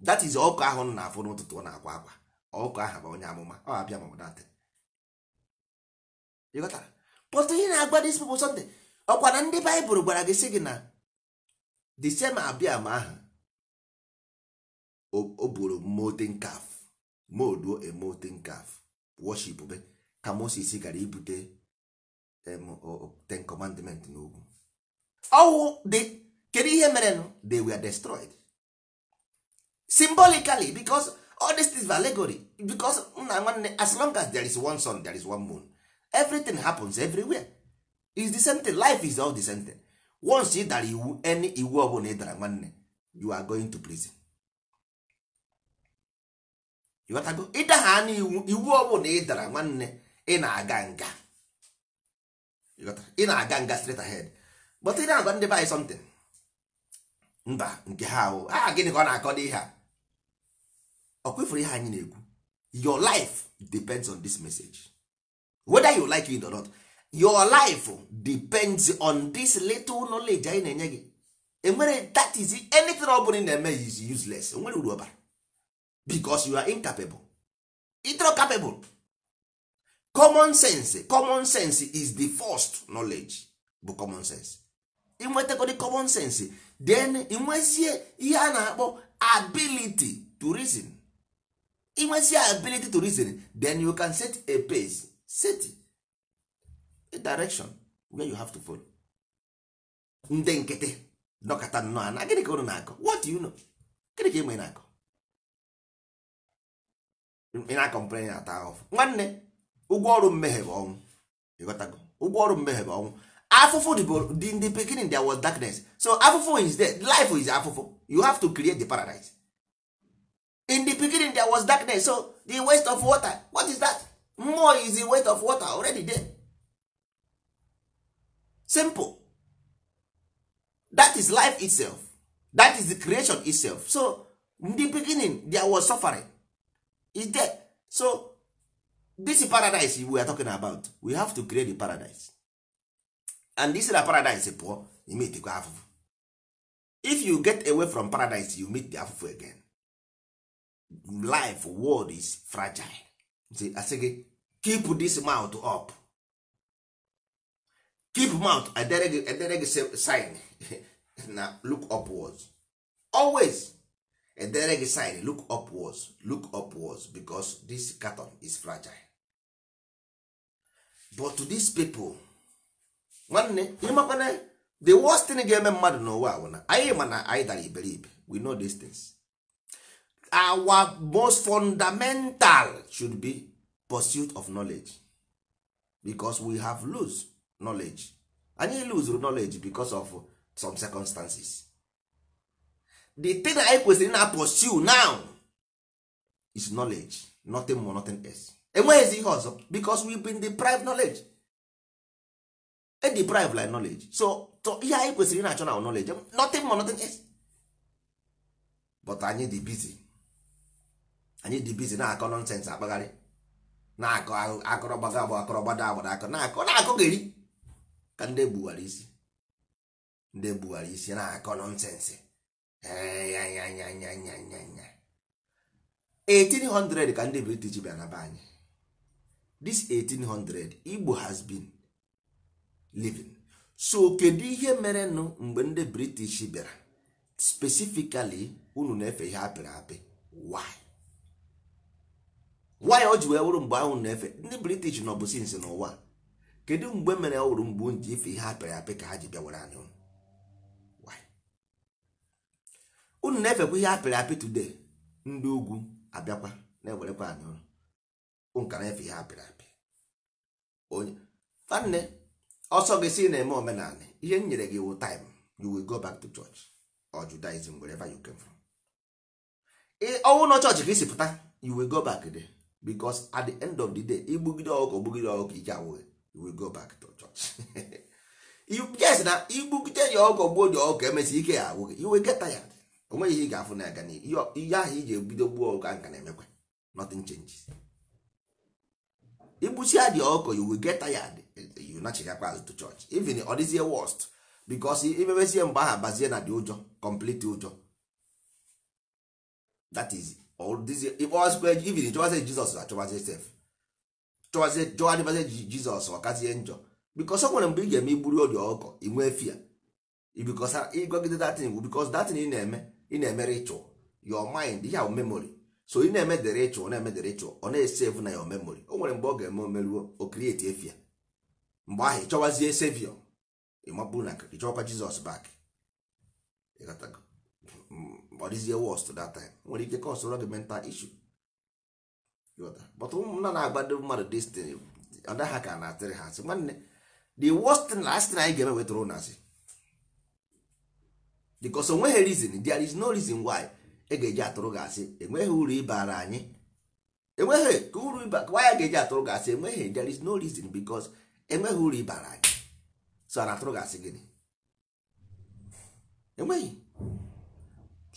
that is ọkụ ahụ m na-afụ n'ụtụtụ na akwa akwa ọkụ ahụ bụ onye amụma ọ abịa ma ọ bụ datị ịghọtara but ihe na-agwa dis people something ọkwa na ndị baịbụl gwara gị sị gị na the same abiam aha o buru molten calf molduo a molten calf worship be ka Moses gara ibute ten commandment n'ugwu ọwụ dị kedu ihe mere they were destroyed symbolically because all these things are allegory because nna nwanne as long as there is one sun there is one moon everything happens everywhere is the same thing life is all the same thing once ị dara iwu any iwu bụla ị dara nwanne you are going to prison ịghọtago ịdagha anụ iwu ọ bụla ị dara nwanne ị na-aga nga ị na-aga nga straight ahead but ị na-agwa ndị by something mba nke ha ahụ a gịnị ka ọ na-akọ n'ihe a ọ kwefuru ihe anyị na-ekwu your life depends on this message. whether you like it or not your life depends on this little knowledge anyị na-enye gị enwere that is anything ọ bụla na-eme is useless enwere uru ọbara because you are incapable itro capable common sense common sense is the first knowledge bụ common sense inwetakodi common sense then inwezie ihe a na-akpọ ability to reason inwezie ability to reason then you can set a pace City, a direction where you have to follow ndị nkịtị nọkọta nnọọ ana gịnị ka unu na-akọ what do you know gịnị ka enwe na-akọ ị na-akọmplen na-ata ahụfụ nwanne ụgwọ ọrụ mmehie bụ ọnwụ ịghọtago ụgwọ ọrụ mmehie bụ ọnwụ afụfụ dị ndị beginning there was darkness so afụfụ is there life is afụfụ you have to create the paradise in the beginning there was darkness so the waste of water what is that mmụọ easy weight of water already there simple that is life itself that is the creation itself so in the beginning there was suffering is there so this is paradise we are talking about we have to create the paradise and this is a paradise pụọ the afụfụ if you get away from paradise you meet the afụfụ again life world is fragile asị gị keep this mouth up keep mouth edere gị sign <laughs> na look upwards always edere gị sign look upwards look upwards because this carton is fragile but to these people nwanne ịmakwana the worst thing ga-eme mmadụ n'ụwa bụ na anyị ma na anyị dara iberibe we know these things our most fundamental should be pursuit of knowledge because we have lose knowledge anyị lose knowledge because of some circumstances the thing anyị kwesịrị na pursue now is knowledge nothing more nothing else enweghịzi ihe ọzọ because we been deprived knowledge e deprived like knowledge so ihe anyị kwesịrị na-achọ na knowledge nothing more nothing else but anyị dị busy anyị dị bizi na-akọ nọnsensị akpagharị na-akọ akọrọ gbaga agbụ akọrọ gbada agbada akọ na-akọ na-akọ gịrị ka ndị gbuwara isi ndị gbuwara isi na-akọ nọnsensị 1800 ya, ya, ya, ka ndị british bịa na be anyị this 1800 igbo has been living so kedu ihe nụ mgbe ndị british bịara specifically unu na-efe ihe apịrị apị why nwa ya ji wee wụrụ mgbe ahụ na-efe ndị british nọ bụ sinsi n'ụwa kedu mgbe mere ọ wụrụ mgbe ji ife ihe apịrị apị ka ha ji bịa were anyị unu na-efekwa ihe apịrị apị today ndị ugwu abịakwa na-ewerekwa anyị ụlọ nka na-efe ihe apịrị apị onye fanne ọsọ gị si na-eme omenala ihe m nyere gị wụ taim you will go back to church or Judaism wherever you came from ọnwụ na chọọchị ka isi pụta you will go back there because at the end of the day igbugide ọkụkọ gbugide ọkụkọ ike awụghị you will go back to church <laughs> yes na igbugide ya ọkụkọ gbuo dị ọkụkọ emesi ike ya awụghị you geta ya tired onweghị ihe ị ga-afụ na aga n'ihu ihe ahụ iji ebido gbuo ọkụkọ nka na-emekwa nothing changes igbusia dị ọkụkọ you will get tired you nachigakwa azụ to church even ọ dịzie worst because imebezie mgbe aha bazie na dị ụjọ complete ụjọ that is ivin chọwazie jizọs achọwazie sef ji jizọs ọkazie njọ bikos ọ nwere mgbe ị ga-eme igburu obi ọkọ inwee fia ịgogide datin bụ bikos datin ị na-eme ị na emere ịchụ your mind ya ahụ memory so ị na-eme ịchụ ritual na-eme dịrị ịchụ ọ na esefu na ya memory o nwere mgbe ọ ga-eme omeruo o krieti efia mgbe ahụ ị sevio ịmapụ na ị chọkwa jizọs bak ọ dịzie worst that time nwere ike cause ụra gị mental issue but ụmụnna na agba ndị mmadụ destin ọdaha ka na-atịrị ha asị nwanne the worst thing na asị na anyị ga-eme wetara ụnụ asị because onweghị reason there is no reason why e ga-eji atụrụ gị asị enweghị uru ịbara anyị enweghị ka uru ịba why ga-eji atụrụ gị asị enweghị there is no reason because enweghị uru ịbara anyị so a na-atụrụ gị asị gịnị enweghị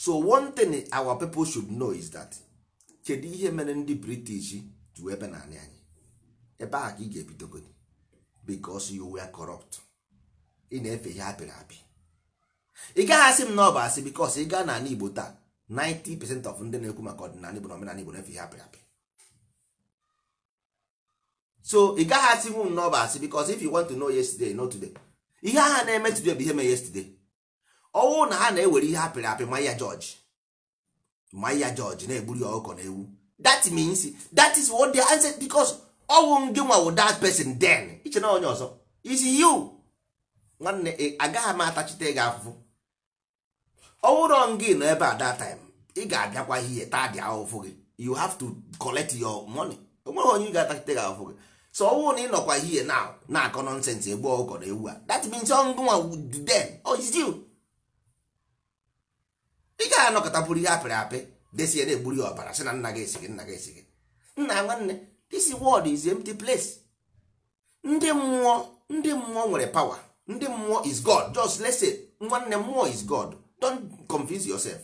so one thing our people should know is that kedu ihe mere ndị british ju ebe na anyị ebe a ka ị ga-ebidogodi because you were corrupt ị na-efe ihe apịrị apị ị gaghị asị m na ọ bụ asị because ị gaa n'ala igbo taa 90% of ndị na-ekwu maka ọdịnala igbo na omenala igbo na-efe ihe apịrị apị so ị gaghị asị m na ọ bụ asị because if you want to know yesterday not today ihe agha na-eme today bụ ihe mee yesterday ọnwụ na ha na-ewere ihe apịrị apị Maya ya jọji ma jọji na-egburu ya ọkụkọ na ewu that means that is what they answer because ọnwụ gị nwa wụ that person den. iche na onye ọzọ is you nwanne agaghị m atachite gị afụfụ ọnwụrọ gị nọ ebe a that time ị ga-abịakwa ihe taa dị ahụfụ gị you have to collect your money onweghị onye ị ga-atachite gị ahụfụ gị so ọnwụ na ị nọkwa ihe na na-akọ nọnsensị egbu ọkụkọ na ewu a that means ọngụnwa then oh is you ị ga-anọkọtakwuru ihe apịrị apị desie na-egburu ya ọbara sị na nna gị esighị nna gị esighị nna nwanne this world is empty place ndị mmụọ ndị mmụọ nwere power ndị mmụọ is god just let's say nwanne mmụọ is god don't confuse yourself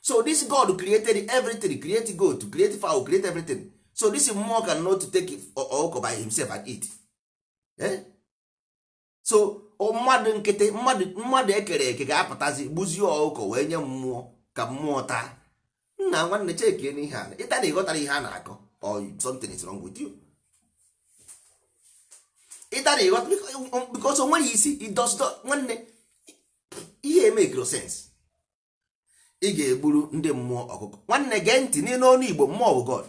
so this god created everything create goat create fowl create everything so this mmụọ cannot take it all by himself and eat eh? so mmadụ nkịtị mmadụ mmadụ ekere eke ga-apụtazi gbuzie ọkụkọ wee nye mmụọ ka mmụọ taa nna nwanne cheke n'ihe a ịta na ịghọtara ihe a na-akọ or something is wrong with you ịta na ịghọta because onweghị isi idosdo nwanne ihe emekiro sense ị ga-egburu ndị mmụọ ọkụkọ nwanne gee ntị n'ile ọnụ igbo mmụọ bụ god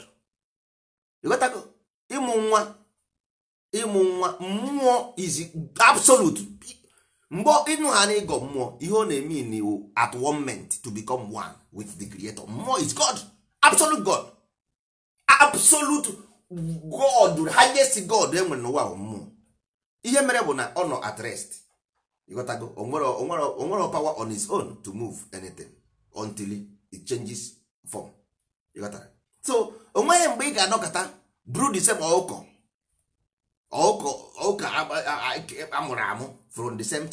ịghọtago ịmụ nwa ịmụ nwa mmụọ is absolute mgbe ịnụ ha na ịgọ mmụọ ihe ọ na-eme n'iwu at one moment to become one with the creator mmụọ is god absolute god absolute god highest god e nwere n'ụwa mmụọ ihe mere bụ na ọ nọ at rest ịghọtago onwere power on his own to move anything until it changes form ịghọtara so onweghị mgbe ị ga-anọkọta buru the same ọkụkọ ọka amụrụ amụ from the same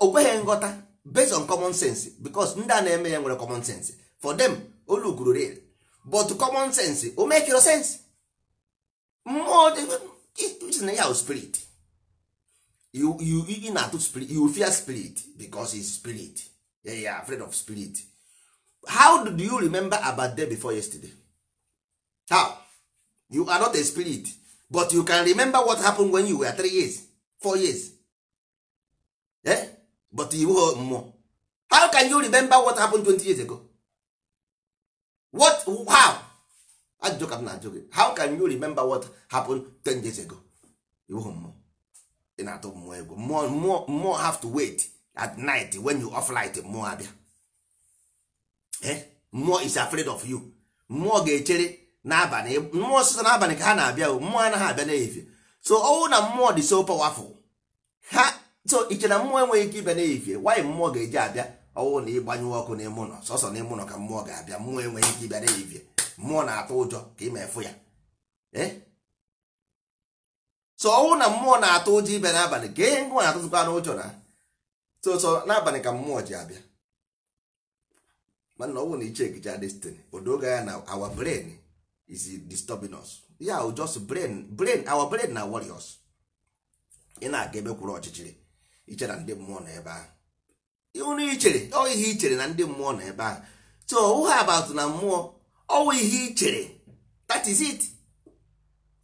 okweghị nghọta based on common sense because ndị a na-eme ya nwere common sense for them oluguru real but common sense o make your sense mmụọ na ya spirit you ị na-atụ spirit you fear spirit because is spirit you are afraid of spirit how do you remember about day before yesterday how you are not a spirit but you can remember what happened when you were three years four years eh? but you were more. how can you remember what happened 20 years ago what how I ah, joke m na-ajụ how can you remember what happened 10 years ago You more. mmụọ more na-atụ mmụọ egwu mmụọ more, have to wait at night when you off light More abịa eh? More is afraid of you More ga ga-echere n'abalị mmụọ sọsọ n'abalị ka ha na-abịa mmụọ anaghị abịa n'ehihie so ọnwụ na mmụọ dị so powerful ha so iche na mmụọ enweghị ike ịbịa n'ehihie wanyị mmụọ ga-eji abịa ọnwụ na ịgbanyụwa ọkụ n'ime ụlọ sọsọ n'ime ụlọ ka mmụọ ga-abịa mmụọ enweghị ike ịbịa n'ehihie mmụọ na-atụ ụjọ ka ị ma efu ya eh? so ọnwụ na mmụọ na-atụ ụjọ ịbịa n'abalị ka ihe ngwa na-atụtụkwa n'ụjọ na so n'abalị ka mmụọ ji abịa mana ọnwụ na iche egicha destiny odoga na awa brain is disturbing us ya yeah, just brain brain our brain na warriors ị na-aga ebe kwụrụ ọchịchịrị iche na ndị mmụọ na ebe ahụ ịhụrụ ichere ọ ihe ichere na ndị mmụọ na ebe ahụ so ụha abatụ na mmụọ ọwụ ihe ichere that is it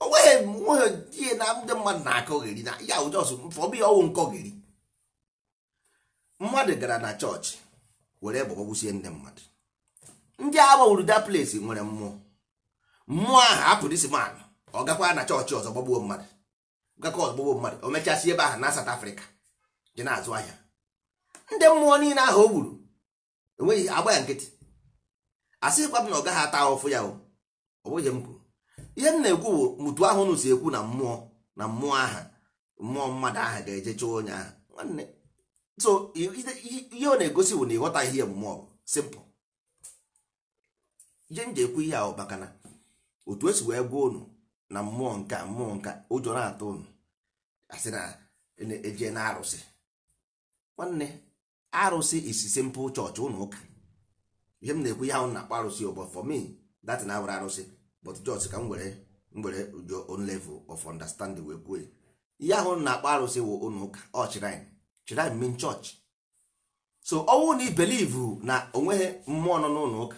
onweghị nweghị ihe na ndị mmadụ na-akọgheri akọ na ya ụjọs mfọbi ọwụ nkọgheri mmadụ gara na chọọchị were bụgọgwụsie ndị mmadụ ndị agbanwuru that place nwere mmụọ mmụọ aha hapụ dis man ọ gakwa na chọọchị ọzọ gbagbuo mmadụ gakwa ọzọ gbagbuo mmadụ o mechasị ebe ahụ na South Africa dị na-azụ ahịa ndị mmụọ niile ahụ o gburu enweghị agba ya nkịtị asịkwa m na ọ gaghị ata ahụfụ ya ọ bụghị m kwuru ihe m na-ekwu bụ mutu ahụ nụ si ekwu na mmụọ na mmụọ aha mmụọ mmadụ aha ga-eje chụọ onye ahụ nwanne so ihe ọ na-egosi bụ na ịghọta ihe mmụọ simple ihe m ji ekwu ihe ahụ maka na otu esi wee gwa unu na mmụọ nke mmụọ nke ụjọ na-atụ unu asị na eje na arụsị nwanne arụsị isi simple chọọchị ụlọ ụka ihe m na-ekwu ya ahụ na-akpọ arụsị ụgbọ for me that na awara arụsị but chọọchị ka m were were ụjọ on level of understanding wee kwuo ihe ahụ na-akpọ arụsị wụ ụlọ ụka ọ oh, chirine chirine mean church so ọnwụ na i believe na onweghị mmụọ nọ n'ụlọ ụka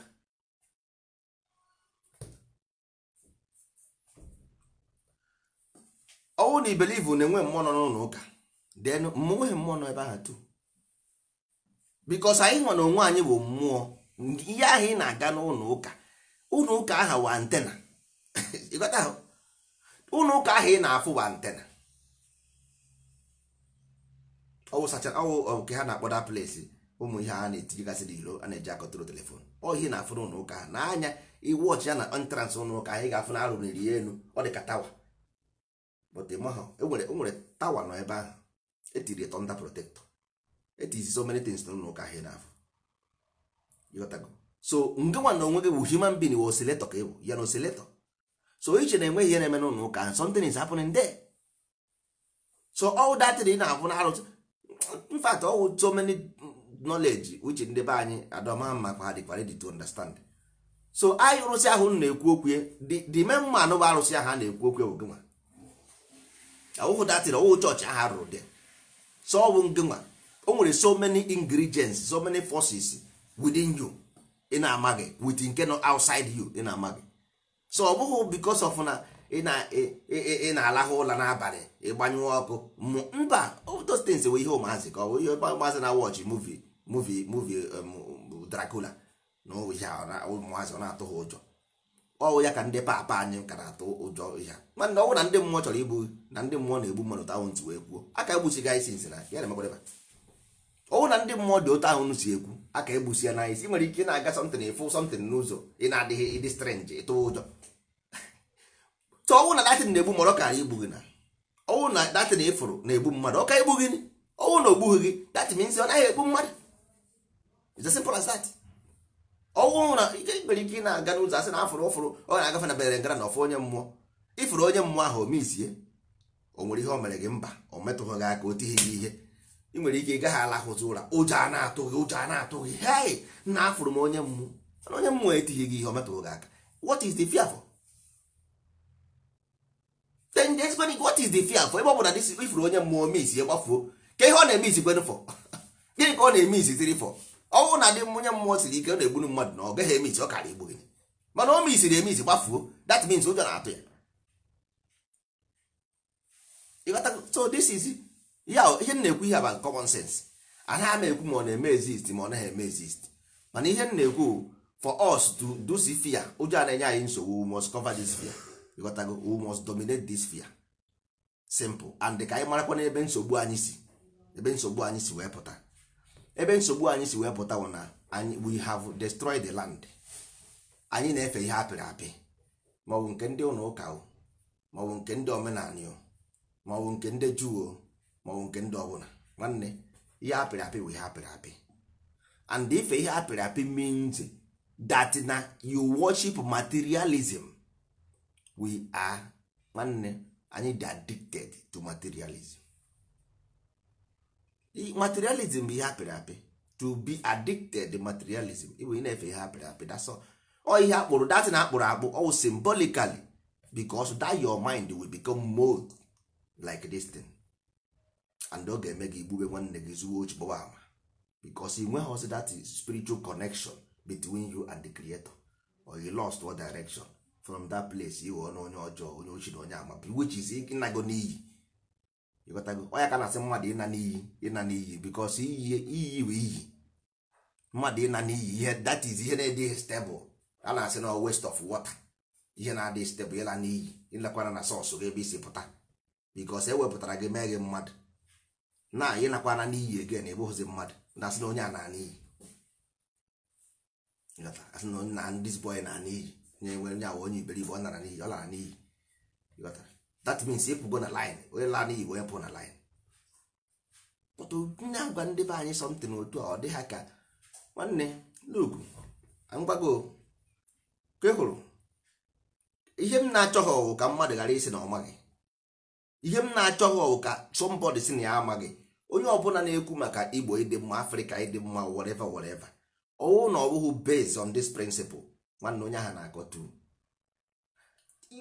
ọnwụ na ibelivu na-enwe mmụọ nọ n'ụlọ ụka den nweghị mmụọ nọ ebe ahụ tu bikos anyị nọ na onwe anyị bụ mmụọ ihe ahụ ị na-aga n'ụlọ ụka ụlọ ụka aha wa antena <laughs> ụlọ ụka ahụ ị na-afụ wa antena ọwụ nke ha na-akpọda akpọ plesi ụmụ ihe a na-etinyegasịrị iro a na-eji akọtụrụ telefon ọhị na-afụ n'ụlọ ụka ha n'anya iwọchi ya na entrans ụlọ ụka ị ga-afụ na arụriri ya elu ọ dị ka tawa but enwere e e tawa nọ ebe ahụ etiri tonda protector etizi so many things n'ụlọ ụka ahịa n'afọ so nge nwa na onwe gị bụ human being wụ oscillator ka ị bụ ya na oscillator so iche na enweghị ihe na-eme n'ụlọ ụka ahụ something is happening there so all that thing na-abụ na arụsị in fact so many knowledge uche ndị be anyị adọma mma kwa dị ready to understand so anyị arụsị ahụ na-ekwu okwu the main man bụ arụsị ahụ a na-ekwu okwu bụ gị nwa ọwụhụ datịrị ọwụhụ chọọchị aha rụrụ dị so ọ bụ ngịnwa o nwere so many ingredients so many forces within you ị na-amaghị with nke nọ outside you ị na-amaghị so ọ bụghị because of na ị na-alahụ ụla n'abalị ịgbanyụọ ọkụ mba those things ihe ụmụazị ka ọ bụ ihe ụmụazị na watch movie movie movie um, Dracula na ụmụazị ọ na-atụ ha ụjọ ọwụ ya ka ndị papa anyị kara atụ ụjọ ihe mana ọwụ na ndị mmụọ chọrọ igbu na ndị mmụọ na-egbu mmadụ ta ahụ ntu wee kwuo aka gị anyị nsị na ya na-emekwara ọwụ na ndị mmụọ dị otu ahụ si ekwu aka egbusi ya n'anyị si nwere ike na-aga something ịfụ something n'ụzọ ị na-adịghị ịdị strange ịtụ ụjọ tụ ọwụ na datin na-egbu mmadụ ka anyị igbughị na ọwụ na datin ịfụrụ na-egbu mmadụ ọka egbughị ọwụ na ogbughị gị datin ọ naghị egbu mmadụ ọnwụ na ike nwere ike ị na-aga n'ụzọ asị na afụrụ ụfụrụ ọ na-agafe na berengara na ọfụ onye mmụọ ịfụrụ onye mmụọ ahụ omisie o nwere ihe o mere gị mba o metụghị gị aka o tighị gị ihe ị nwere ike ịgaghị alahụzi ụra ụjọ a na-atụ gị ụjọ a na-atụ gị hei na afụrụ m onye mmụọ na onye mmụọ etighị gị ihe o metụghị gị aka what is the fear for? then the explaining what is the fear for ebe ọ bụla ifụrụ onye mmụọ omisie gbafuo ka ihe ọ na-eme izi gwenụ fọ <laughs> gịnị ka ọ na-eme izi tiri fọ ọ bụrụ na dị onye mmụọ siri ike ọ na-egburu mmadụ na ọ gaghị emisi ọ kara igbu gị mana o misiri emisi gbafuo that means ụjọ na-atụ ya so this is ya ihe m na-ekwu ihe aba common sense anaghị m ekwu ma ọ na-eme exist ma ọ naghị eme exist mana ihe m na-ekwu for us to do this fear ụjọ a na-enye anyị nsogbu we must cover this fear ịghọtago we must dominate this fear simple and dị ka anyị marakwa n'ebe nsogbu anyị si ebe nsogbu anyị si wee pụta ebe nsogbu anyị si wee pụta wụ na we have destroyed the land anyị na-efe ihe apịrị apị maọbụ nke ndị ụlọ ụka maọbụ nke ndị omenala maọbụ nke ndị juu maọbụ nke ndị ọbụla nwanne ihe apịrị apị wụ ihe apịrị apị and ife ihe apịrị apị means that na you worship materialism we are nwanne anyị dị addicted to materialism materialism bụ ihe apịrị apị to be addicted materialism ịbụ ị na-efe ihe apịrị apị dasọ ọ ihe akpụrụ datị na akpụrụ akpụ ọ symbolically because that your mind will become mold like this thing and ọ ga-eme gị igbube nwanne gị zuo ochi gbọwa ama because ị nweghị that spiritual connection between you and the creator or you lost one direction from that place ighọ na onye ọjọọ onye ochi na onye ama which is ịnago n'iyi ịghọtago ọ ya ka na-asị mmadụ ịna n'iyi ịna n'iyi bikos iyi bụ iyi mmadụ ịna n'iyi ihe that is ihe na-adịghị stebụl a na-asị na west of water ihe na-adịghị stebụl ịla n'iyi ịlakwara na sọsụ gị ebe isi pụta bikos e wepụtara gị mee gị mmadụ na ịnakwana n'iyi egen ebụghịzi mmadụ na-asị na onye a na n'iyi asị na na ndị boy na n'iyi nye nwere nye awụ onye iberibe ọ nara n'iyi ọ lara n'iyi that means ịpụgo na line onye laa n'iyi onye pụrụ na line pụtụ nne agwa ndị be anyị something otu a ọ dị ha ka nwanne lugu ngwago ke hụrụ ihe m na-achọghị ọwụ ka mmadụ ghara isi na ọmaghị ihe m na-achọghị ọwụ ka somebody si na ya amaghị onye ọbụla na-ekwu maka igbo ịdị mma afrịka ịdị mma whatever whatever ọwụ na ọ bụghị based on this principle nwanne onye ahụ na-agọtu akọ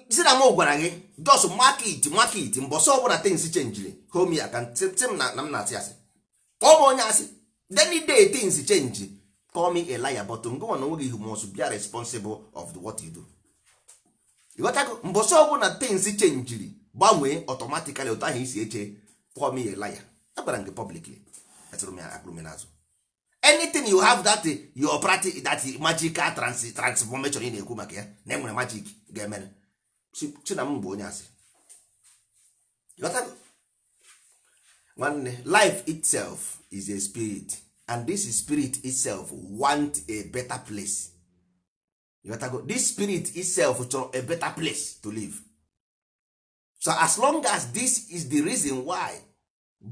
si na m gwara gị jos market market mbọsọ ọbụla tins chenjiri homi akant na m na-asị asị kpọọ m onye asị deni day tins chenji call me a liar but ngụwa na onweghị ihu mos bia responsible of the what you do ịghọtago mbọsọ ọbụla tins chenjiri gbanwee ọtọmatikali otu ahụ isi eche call me a liar agwara m gị publicly akụrụmenazụ anything you have that your practice that magical transformation ị na-ekwu maka ya na enwere magic ga-emere chinam bụ onye asị nwanne life itself is a spirit and this spirit itself want a better place Yotago, this spirit itself chọrọ a better place to live so as long as this is the reason why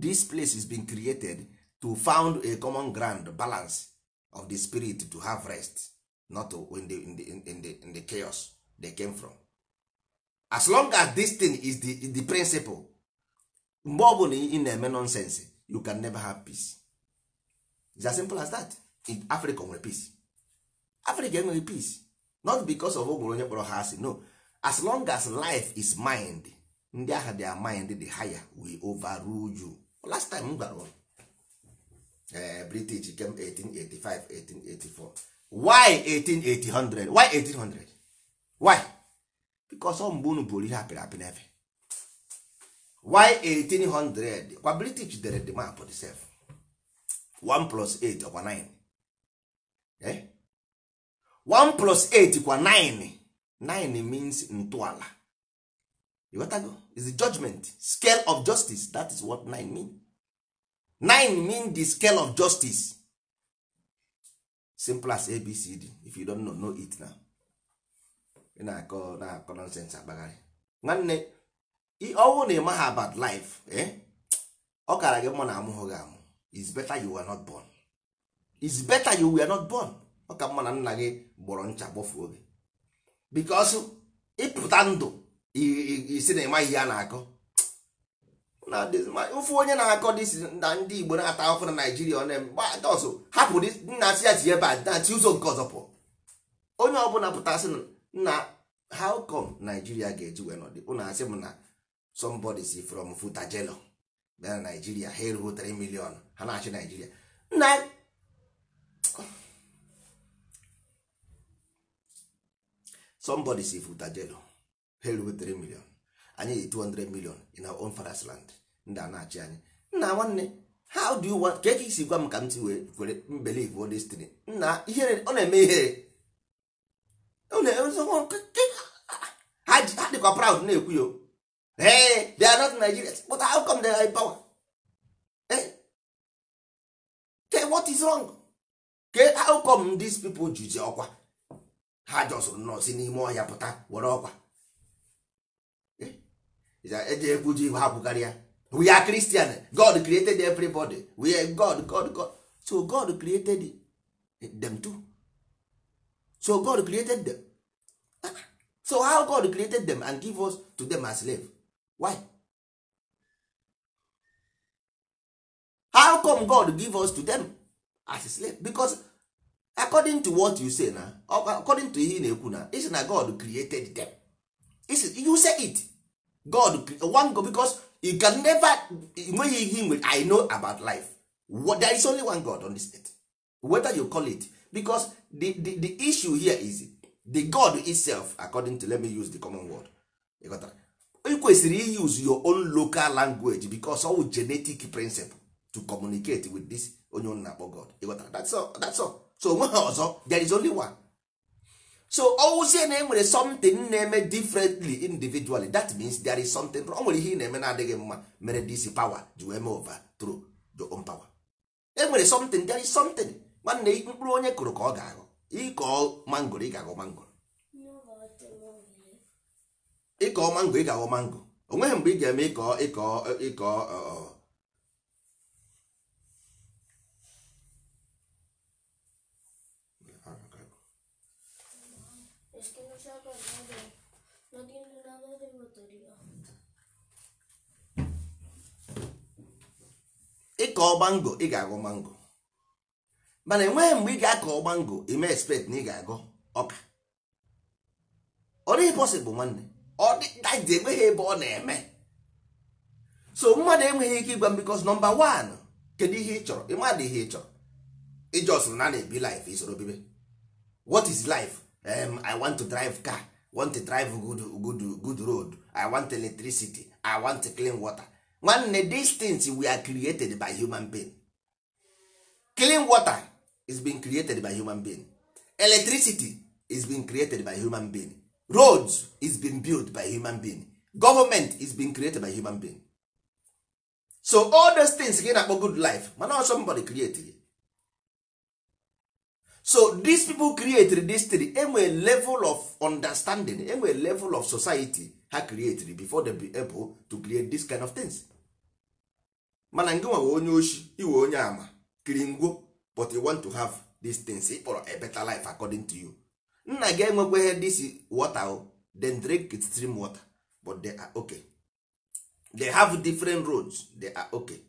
this place is being created to found a common ground balance of the spirit to have rest not when in, the, in, the, in, the, in the chaos they came from as long as this thing is the, the principle mgbe ọ bụla ị na-eme nonsense you can never have peace it's as simple as that in africa nwere peace africa enweghị peace not because of ogwere onye kpọrọ ha asị no as long as life is mind ndị agha their mind the higher we overrule you last time m gwara uh, british came 1885 1884 why 1880 why 1800 why because ọ mgbe unu bụrụ ihe apịrị apị n'efe why 1800 kwa british dere the map the self 1 plus 8 ọkwa 9 eh? 1 plus 8 kwa 9 9 means ntọala ịghọtago is the judgment scale of justice that is what 9 mean 9 mean the scale of justice simple as abcd if you don't know, know it now ị na-akọ na-akọ nọnsensị akpagharị nwanne ọnwụ na ịmaghị about life ọ kara gị mma na amụghị gị amụ is better you were not born is better ọ ka mma na nna gị gbọrọ ncha gbofuo gị because ịpụta ndụ isi na ịmaghị a na-akọ ofu onye na-akọ na ndị Igbo na-ata ahụhụ na Naijiria ọ na-eme hapụ nna si ya si ebe a na-achị ụzọ nke ọzọ pụọ onye ọbụla pụtasị na how come Nigeria ga-eji wee nọdị ụnụ asị m na somebody si from Futajelo bịa na Nigeria ha erughị 3 million ha na-achị Nigeria na somebody si Futajelo ha erughị 3 million anyị dị 200 million in our own father's land ndị a na-achị anyị nna nwanne how do you want ka esi gwa m ka m ti wee kwere mbelivu destiny nna ihere ọ na-eme ihere ha dịkwa proud na-ekwu ya ee they are not Nigerians but how come they are power eh what is wrong ke how come these people juzi ọkwa ha jọsụrụ nnọọ n'ime ọhịa pụta were ọkwa eh, eji ekwuju iwe ha kwukarị ya we are Christian God created everybody we are God God God so God created them too so god created them so how god created them and give us to them as slave why how come god give us to them as slave because according to what you say na according to ihe ị na-ekwu na isi na god created them you say it god one god because you can never nweghị ihe i know about life there is only one god on this earth whether you call it because the, the, the issue here is the god itself according to let me use the common word ị kwesịrị use your own local language because all genetic principle to communicate with this onye unu akpo god that's all that's all so onweghị <laughs> ọzọ there is only one so ọwụzie na enwere something na-eme differently individually that means there is something o nwere ihe ị na-eme na-adịghị mma mere this power ji wee mee over through your own power enwere something there is something nwanne mkpụrụ onye kụrụ ka ọ ga-aghọ ịkọọ mangoro ị ga-aghọ mangoro ịkọ mango ị ga-aghọ mango onweghị mgbe ị ga-eme ịkọọ ịkọ mango ị ga-aghọ mango mana enweghị mgbe ị ga-akọ mango ime expect na ị ga-agọ ọka ọ dịghị possible nwanne ọ dịdaji enweghị ebe ọ na-eme so mmadụ enweghị ike ịgwa m because number one kedu ihe ị chọrọ ịmadụ ihe ị chọrọ just na na-ebi life isoro bibe what is life um, i want to drive car want to drive good, good, good road i want electricity i want clean water nwanne these things we are created by human being clean water is being created by human being electricity is being created by human being roads is being built by human being government is being created by human being so all those things gị na-akpọ good life mana ọ somebody create so dis people created this thing enwe level of understanding enwe level of society ha created before they be able to create this kind of things mana ngị nwa onye oshi iwe onye ama kiri ngwo but you want to have this thing, ị kpọrọ a better life according to you nna gị enwekwa ihe this water then drink it stream water but they are okay they have different roads they are okay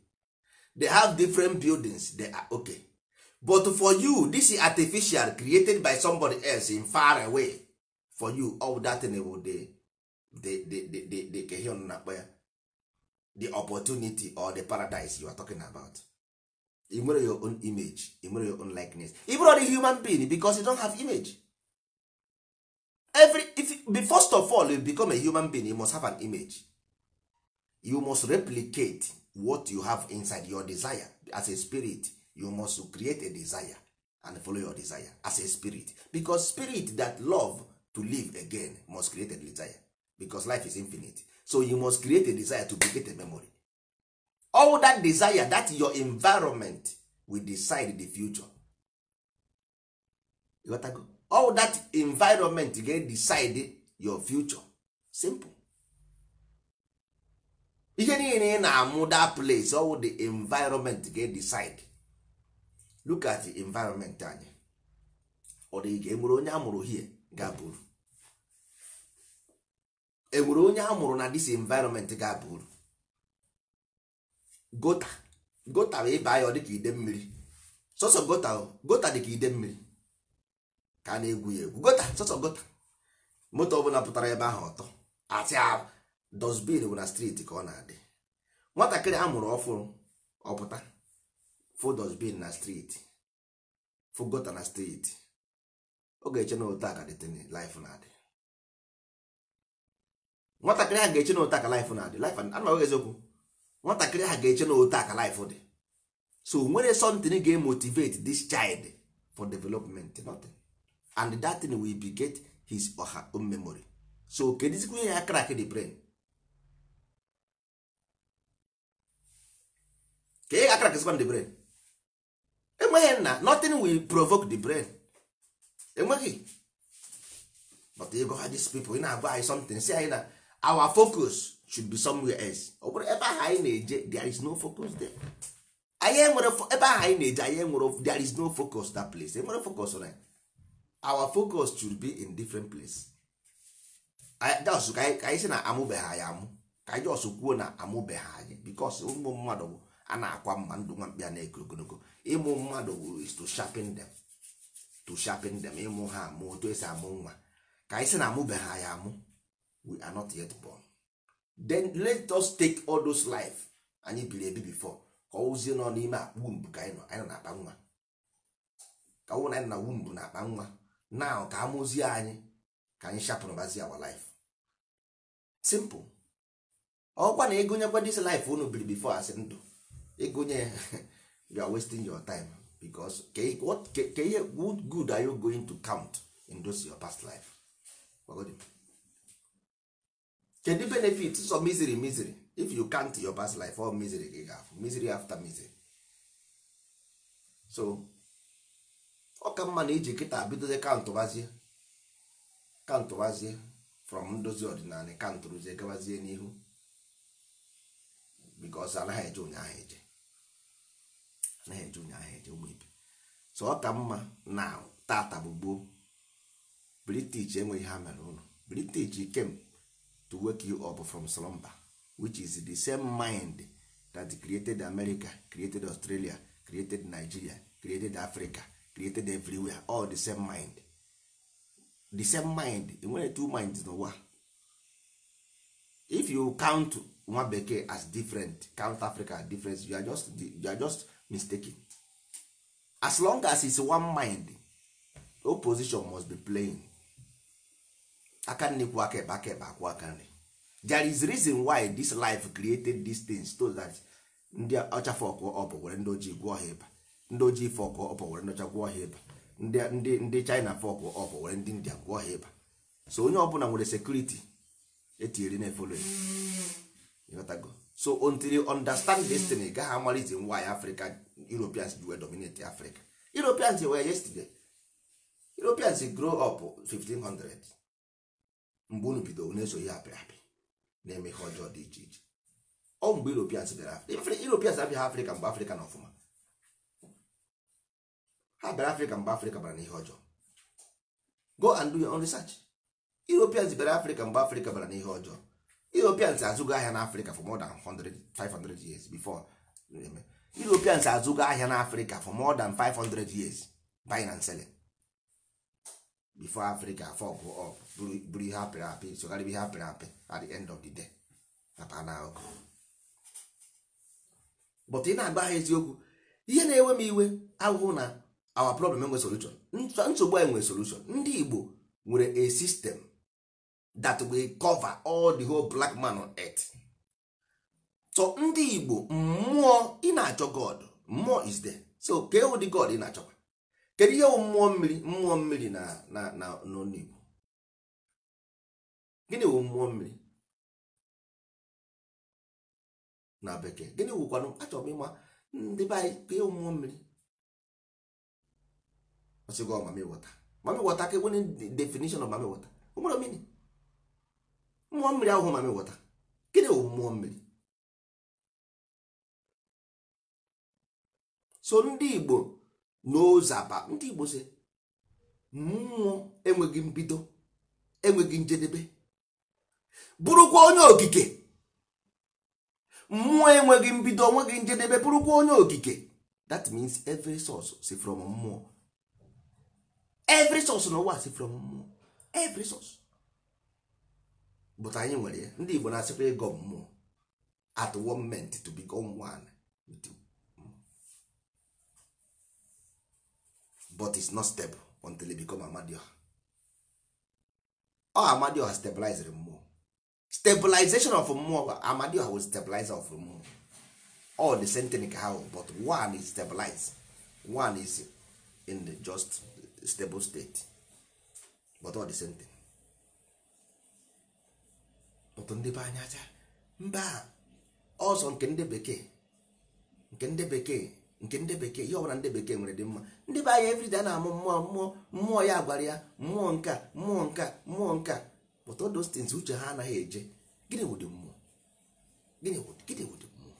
they have different buildings they are okay but for you this is artificial created by somebody else in far away for you all that thing will the the the the the the opportunity or the paradise you are talking about you your own image you your own likeness even on a human being because you don't have image every if first of all you become a human being you must have an image you must replicate what you have inside your desire as a spirit you must create a desire and follow your desire as a spirit because spirit that love to live again must create a desire because life is infinite so you must create a desire to create a memory all that desire that your environment will decide the future you got to go. all that environment get decide your future simple ihe niile ị na-amụ that place all the environment get decide look at the environment anyị ọ dị ga enwere onye amụrụ hie ga-abụrụ enwere onye amụrụ na this environment ga-abụrụ gota gota bụ ịba ya ọ dịka ide mmiri sọsọ gota gota dịka ide mmiri ka a na-egwu ya egwu gota sọsọ gota moto ọbụla pụtara ebe ahụ ọtọ atị dosbin bụ na striti ka ọ na-adị nwatakịrị a mụrụ ọfụrụ ọpụta fụ dosbin na striti fụ gota na striti ọ ga-eche na ụta ka dịtịnị laif na-adị nwatakịrị ahụ ga-eche na ụta ka laif na-adị laif anọghị eziokwu nwatakịrị ha ga-eche na otu aka life dị so nwere something ga-emotivate this child for development nothing and that thing will get his or her own memory so kedizikwa ihe ya crack the brain ka i crack ga-akrakzikwa the brain enweghị nna nothing will provoke the brain enweghị but go ha these people ị na-agwa anyị something si anyị na our focus should be somewhere else ọ bụrụ ebe ahụ anyị na-eje there is no focus there anyị enwere ebe ahụ anyị na-eje anyị enwere there is no focus that place enwere focus on our focus should be in different place jos ka anyị sị na amụbeghị anyị amụ ka anyị jos kwuo na amụbeghị anyị bikos ụmụ mmadụ bụ a na-akwa mma ndụ nwa mkpi a na-eko ogologo ịmụ mmadụ is to sharpen them to sharpen them ịmụ ha amụ otu esi amụ nwa ka anyị sị na amụbeghị anyị amụ we are not yet born then let us take all those life anyị biri ebi before ka ọwụzie nọ n'ime akpa womb ka anyị nọ anyị nọ na-akpa nwa ka ọwụ na anyị na womb na-akpa nwa now ka amụzie anyị ka anyị sharpen bazie our life simple ọkwa na ịgụnyekwa dis life unu biri before asị ndụ ịgụnye <laughs> you are wasting your time because ka ihe good good are you going to count in those your past life kedu benefit so misery misery if you count your past life all misery gị ga-afụ misery after misery so ọ ka mma na iji kịta bidozie kantụbazie kantụbazie from ndozi ọdịnala kantụrụzie gabazie n'ihu because anaghị eje ụnyaahụ eje anaghị eje ụnyaahụ eje ụmụ ibe so ọ ka mma na tata bụ gboo british enweghị ha mere ụlọ british kem to wake you up from slumber which is the same mind that created America created Australia created Nigeria created Africa created everywhere all the same mind the same mind enwere two minds n'ụwa if you count nwa bekee as different count Africa as different you are just, you are just mistaken as long as it's one mind opposition must be playing aka nri kwụ aka ebe aka ebe akwụ aka nri there is reason why this life created these things so that ndị ọcha fọkụ ọpụ were ndị ojii gwụọ ha ịba ndị ojii fọkụ ọpụ were ndị ọcha gwụọ ha ịba ndị ndị china fọkụ ọpụ were ndị india gwụọ ha ịba so onye ọbụla nwere sekuriti etinyere na-efolo ịghọtago so until you understand destiny ị gaghị ama reason why africa europeans ji wee dominate africa europeans were yesterday europeans grow up 1500 mgbe unu bidoro na-eso ihe apịrị apị na-eme ihe ọjọọ dị iche iche ọ mgbe Europeans bịara Europeans abịaghị Afrịka mgbe Afrịka na ọfụma ha bịara Afrịka mgbe Afrịka bara n'ihe ọjọọ go and do your own research Europeans bịara Afrịka mgbe Afrịka bara n'ihe ọjọọ Europeans azụgo ahịa n'Afrịka for more than 100 years before Europeans azụgo ahịa n'Afrịka for more than 500 years buying and selling before Africa fog up buru ihe apịrị apị sogharịba ihe apịrị apị at the end of the day maka na ahụ but ị na-agba ha eziokwu ihe na-ewe m iwe ahụhụ na our problem enwe solution nsogbu anyị nwere solution ndị Igbo nwere a system that will cover all the whole black man on earth so ndị Igbo mmụọ ị na-achọ God mmụọ is there so ka ewu God ị na-achọkwa kedu ihe mmụọ mmiri mmụọ mmiri na na na n'Igbo gịnị wụ mmụọ mmiri na bekee gịnị wụkwanụ achọrọ m ịma ndị be anyị ka ịwụ mmụọ mmiri ọsịgo mami wọta mami wọta ka enwere definition of mami wọta onwere omini mmụọ mmiri ahụ mami wọta gịnị wụ mmụọ mmiri so ndị igbo n'ozaba ndị igbo si mmụọ enweghị mbido enweghị njedebe bụrụkwa onye okike mmụọ enweghị mbido onweghị njedebe bụrụkwa onye okike that means every source si from mmụọ every source n'ụwa si from mmụọ every source but anyị nwere ya ndị Igbo na-asịkwa ego mmụọ at one moment to become one with but it's not stable until it become Amadioha ọ Amadioha stabilized mmụọ stabilization of mmụọ amadioha was stabilize of mmụọ all the same thing ka ha but one is stabilized one is in the just stable state but all the same thing but ndị be anya aja mba ọzọ nke ndị bekee nke ndị bekee nke ndị bekee ihe ọbụla ndị bekee nwere dị mma ndị be anya everyday a na-amụ mmụọ mmụọ mmụọ ya gwara ya mmụọ nka mmụọ nka mmụọ nka but all those things uche ha anaghị eje gịnị wụ dị mmụọ gịnị gịnị wụ dị mmụọ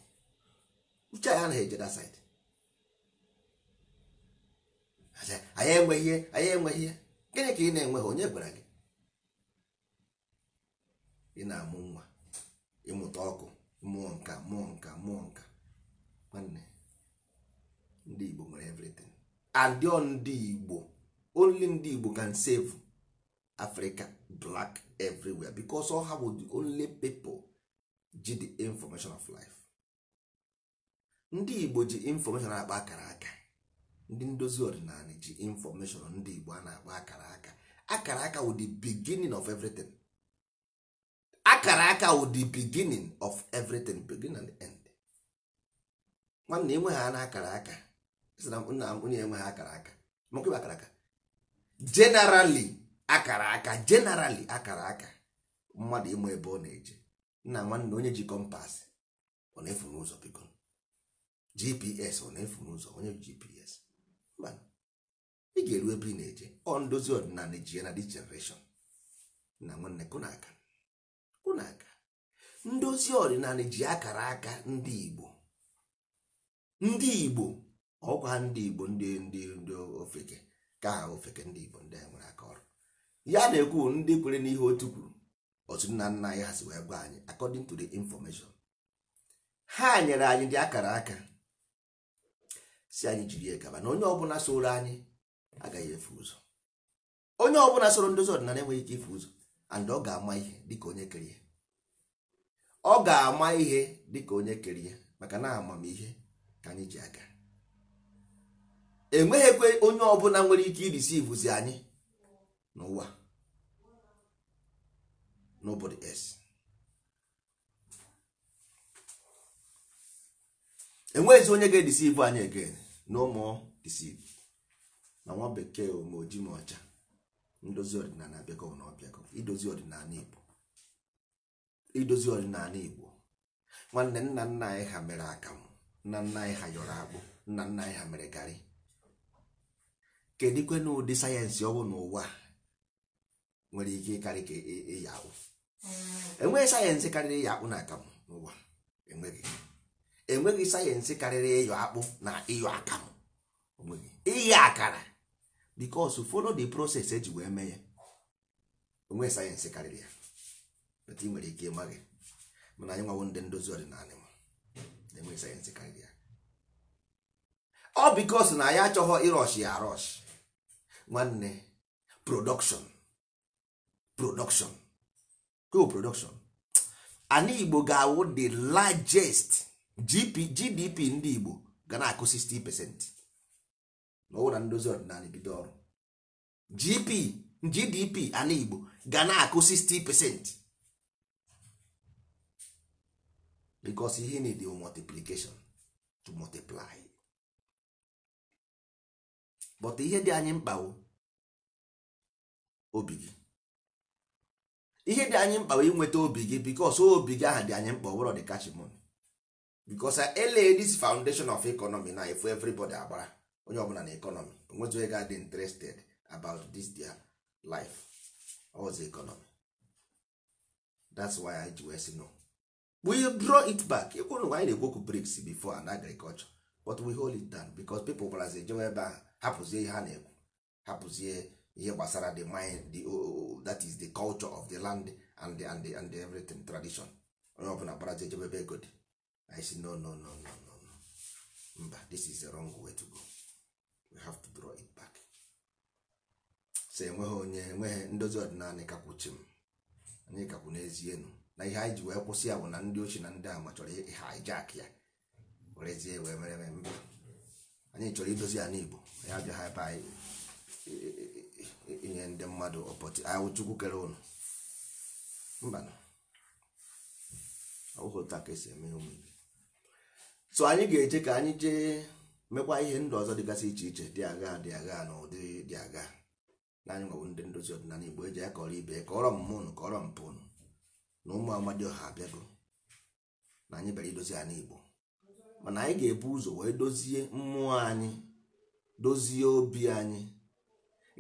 uche anyị anaghị eje that side anyị enweghị ihe anyị enweghị ihe gịnị ka ị na-enweghị onye gwara gị ị na-amụ nwa ịmụta ọkụ mmụọ nka mmụọ nka mmụọ nka nwanne ndị Igbo nwere everything adịọ ndị Igbo only ndị Igbo can save Africa black everywhere because all ha bụ the only people ji the information of life ndị igbo ji information akpa akara aka ndị ndozi ọdịnala ji information ndị igbo a na-akpa akara aka akara aka wụ the beginning of everything akara aka wụ the beginning of everything beginning and end nwanne enweghị ha na akara aka nna m onye enweghị akara aka makwa akara aka generally akara aka generally akara aka mmadụ ịma ebe ọ na-eje nna nwanne onye ji kọmpas ọ na-efu n'ụzọ biko gps ọ na-efu n'ụzọ onye gps mba ị ga-eru ebe ị na-eje ọ ndozi ọdịnala ji na this generation nna nwanne kụna aka kụna aka ndozi ọdịnala ji akara aka ndị igbo ndị igbo ọkwa ndị igbo ndị ndị ofeke ka ofeke ndị igbo ndị a nwere aka ọrụ ya na-ekwu ndị kwere n'ihe otu kwuru otu nna nna anyị ha wee gwa anyị according to the information ha nyere anyị dị akara aka si anyị jiri ya gaba na onye ọbụla soro anyị agaghị efu ụzọ onye ọbụla soro ndozi ọdịnala enweghị ike ifu ụzọ and ọ ga-ama ihe dịka onye kere ọ ga-ama ihe dịka onye kere ya maka na amamihe ka anyị ji aga enweghịkwe onye ọbụla nwere ike irisivuzi anyị n'ụwa nobody else enweghịzi onye ga-edisive anyị again no more deceive na nwa bekee ma oji ma ọcha ndozi ọdịnala abịago na ọbịago idozi ọdịnala igbo idozi ọdịnala igbo nwanne nna nna anyị ha mere akamụ nna nna anyị ha yọrọ akpụ nna nna anyị ha mere garị kedikwe na ụdị sayensị ọwụ n'ụwa nwere ike ịkarị ka ịya e, e akpụ mm. enweghị sayensị karịrị ịya akpụ na akamụ n'ụwa enweghị sayensị karịrị ịyọ akpụ na ịyọ akamụ onweghị ịyọ akara because follow the process eji wee mee ya onweghị sayensị karịrị ya bata ị nwere ike ịmaghị mana anyị nwawo ndị ndozi ọdịnala na enweghị sayensị karịrị ya ọ bikos na anyị achọghị ịrọshi ya arọshi nwanne production production co-production ana igbo ga-awụ the largest gdp ndị igbo ga na-akụ 60 percent n'ọwụ na ndozi ọdịnala bido ọrụ gp gdp ana igbo ga na-akụ 60 percent because ihe need multiplication to multiply but ihe dị anyị mkpa obi gị ihe dị anyị mkpa nweta obi gị because obi gị aha dị anyị mkpa ọ dị kachimon because ele this foundation of economy na efu everybody agbara onye ọbụla na economy nwetụ onye ga-adị interested about this their life oz economy that's why i ji wee sị no we draw it back ịkwụrụ anyị na-ekwoku briks before and agriculture but we hold it down because people brazil jewe ebe ahụ hapụzie ihe a na-ekwu hapụzie ihe gbasara the mind the oh, oh, oh, that is the culture of the land and the, and the, and the everything tradition onye ọbụla gbaraji ejebe ebe ego dị i say no no no no no mba this is the wrong way to go we have to draw it back so enweghị onye enweghị ndozi ọdịnala kakwuchi m anyị kakwu n'ezie nụ na ihe anyị ji wee kwụsị ya bụ na ndị ochie na ndị ama chọrọ haijak ya werezie wee mere mba anyị chọrọ idozi ya n'igbo ya abịaghị ebe anyị inye ndị mmadụ ọpọtụ ahụ kere ụnụ mba ọwụghị ka esi eme ụmụ ibe so anyị ga-eje ka anyị jee mekwa ihe ndụ ọzọ dịgasị iche iche dị agha dị agha na ụdị dị agha na anyị nwabụ ndị ndozi ọdịnala igbo eji ya kọrọ ibe kọrọ mmụ ụnụ kọrọ mpụ ụnụ na ụmụ amadi ọha abịago na anyị bịara idozi ya n'igbo mana anyị ga-ebu ụzọ wee dozie mmụọ anyị dozie obi anyị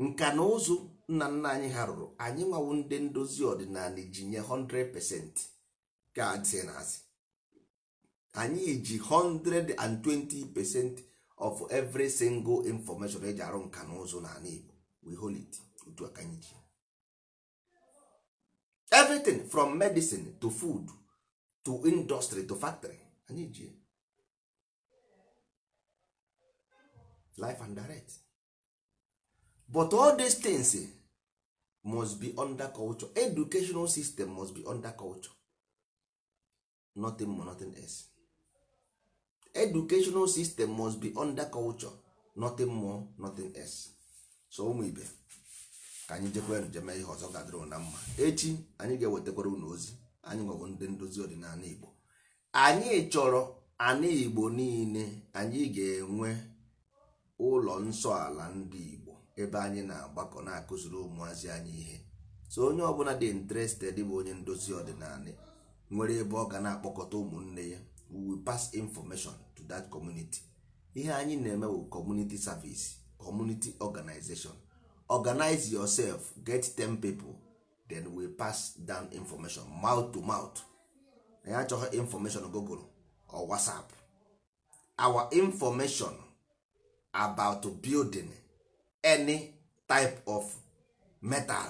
nka na ụzụ nna nna anyị ha rụrụ anyị nwawo ndị ndozi ọdịnala ji nye 100% ka anyị na asị anyị ji 120% of every single information eji arụ nka na ụzụ n'ala Igbo we hold it otu aka anyị ji everything from medicine to food to industry to factory anyị ji life and direct but all these things eh, must be under culture educational system must be under culture nothing more nothing else educational system must be under culture nothing more nothing else so ụmụ ibe ka anyị jekwa njem ihe ọzọ gadoro na mma echi anyị ga-ewetakwara unu ozi anyị nwere ndị ndozi ọdịnala igbo anyị chọrọ ana igbo niile anyị ga-enwe ụlọ nsọ ala ndị igbo ebe anyị na-agbakọ na-akụziri ụmụazị anyị ihe so onye ọbụla dị interested bụ onye ndozi ọdịnala nwere ebe ọ ga na-akpọkọta ụmụnne ya we will pass information to that community ihe anyị na-eme bụ community service community organization organize yourself get 10 people then we pass down information mouth to mouth anyị achọghị information google or whatsapp our information about building any type of metal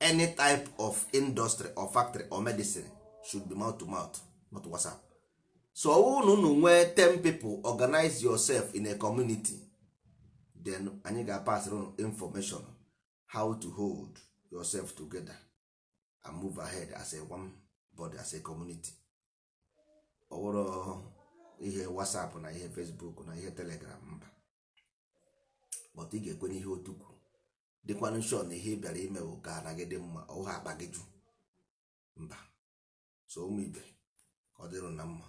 any type of industry or factory or medicine should be mouth to mouth not whatsapp so unu unu nwee 10 people organize yourself in a community then anyị ga-pass on information how to hold yourself together and move ahead as a one body as a community ọ wụrụ ihe whatsapp na ihe facebook na ihe telegram mba but ị ga-ekwe n'ihe otu kwuru dịkwanụ shọ na ihe ị bịara ime bụ ka gị dị mma ọha akpa gị jụ mba so ụmụ ibe ọ dịrụ na mma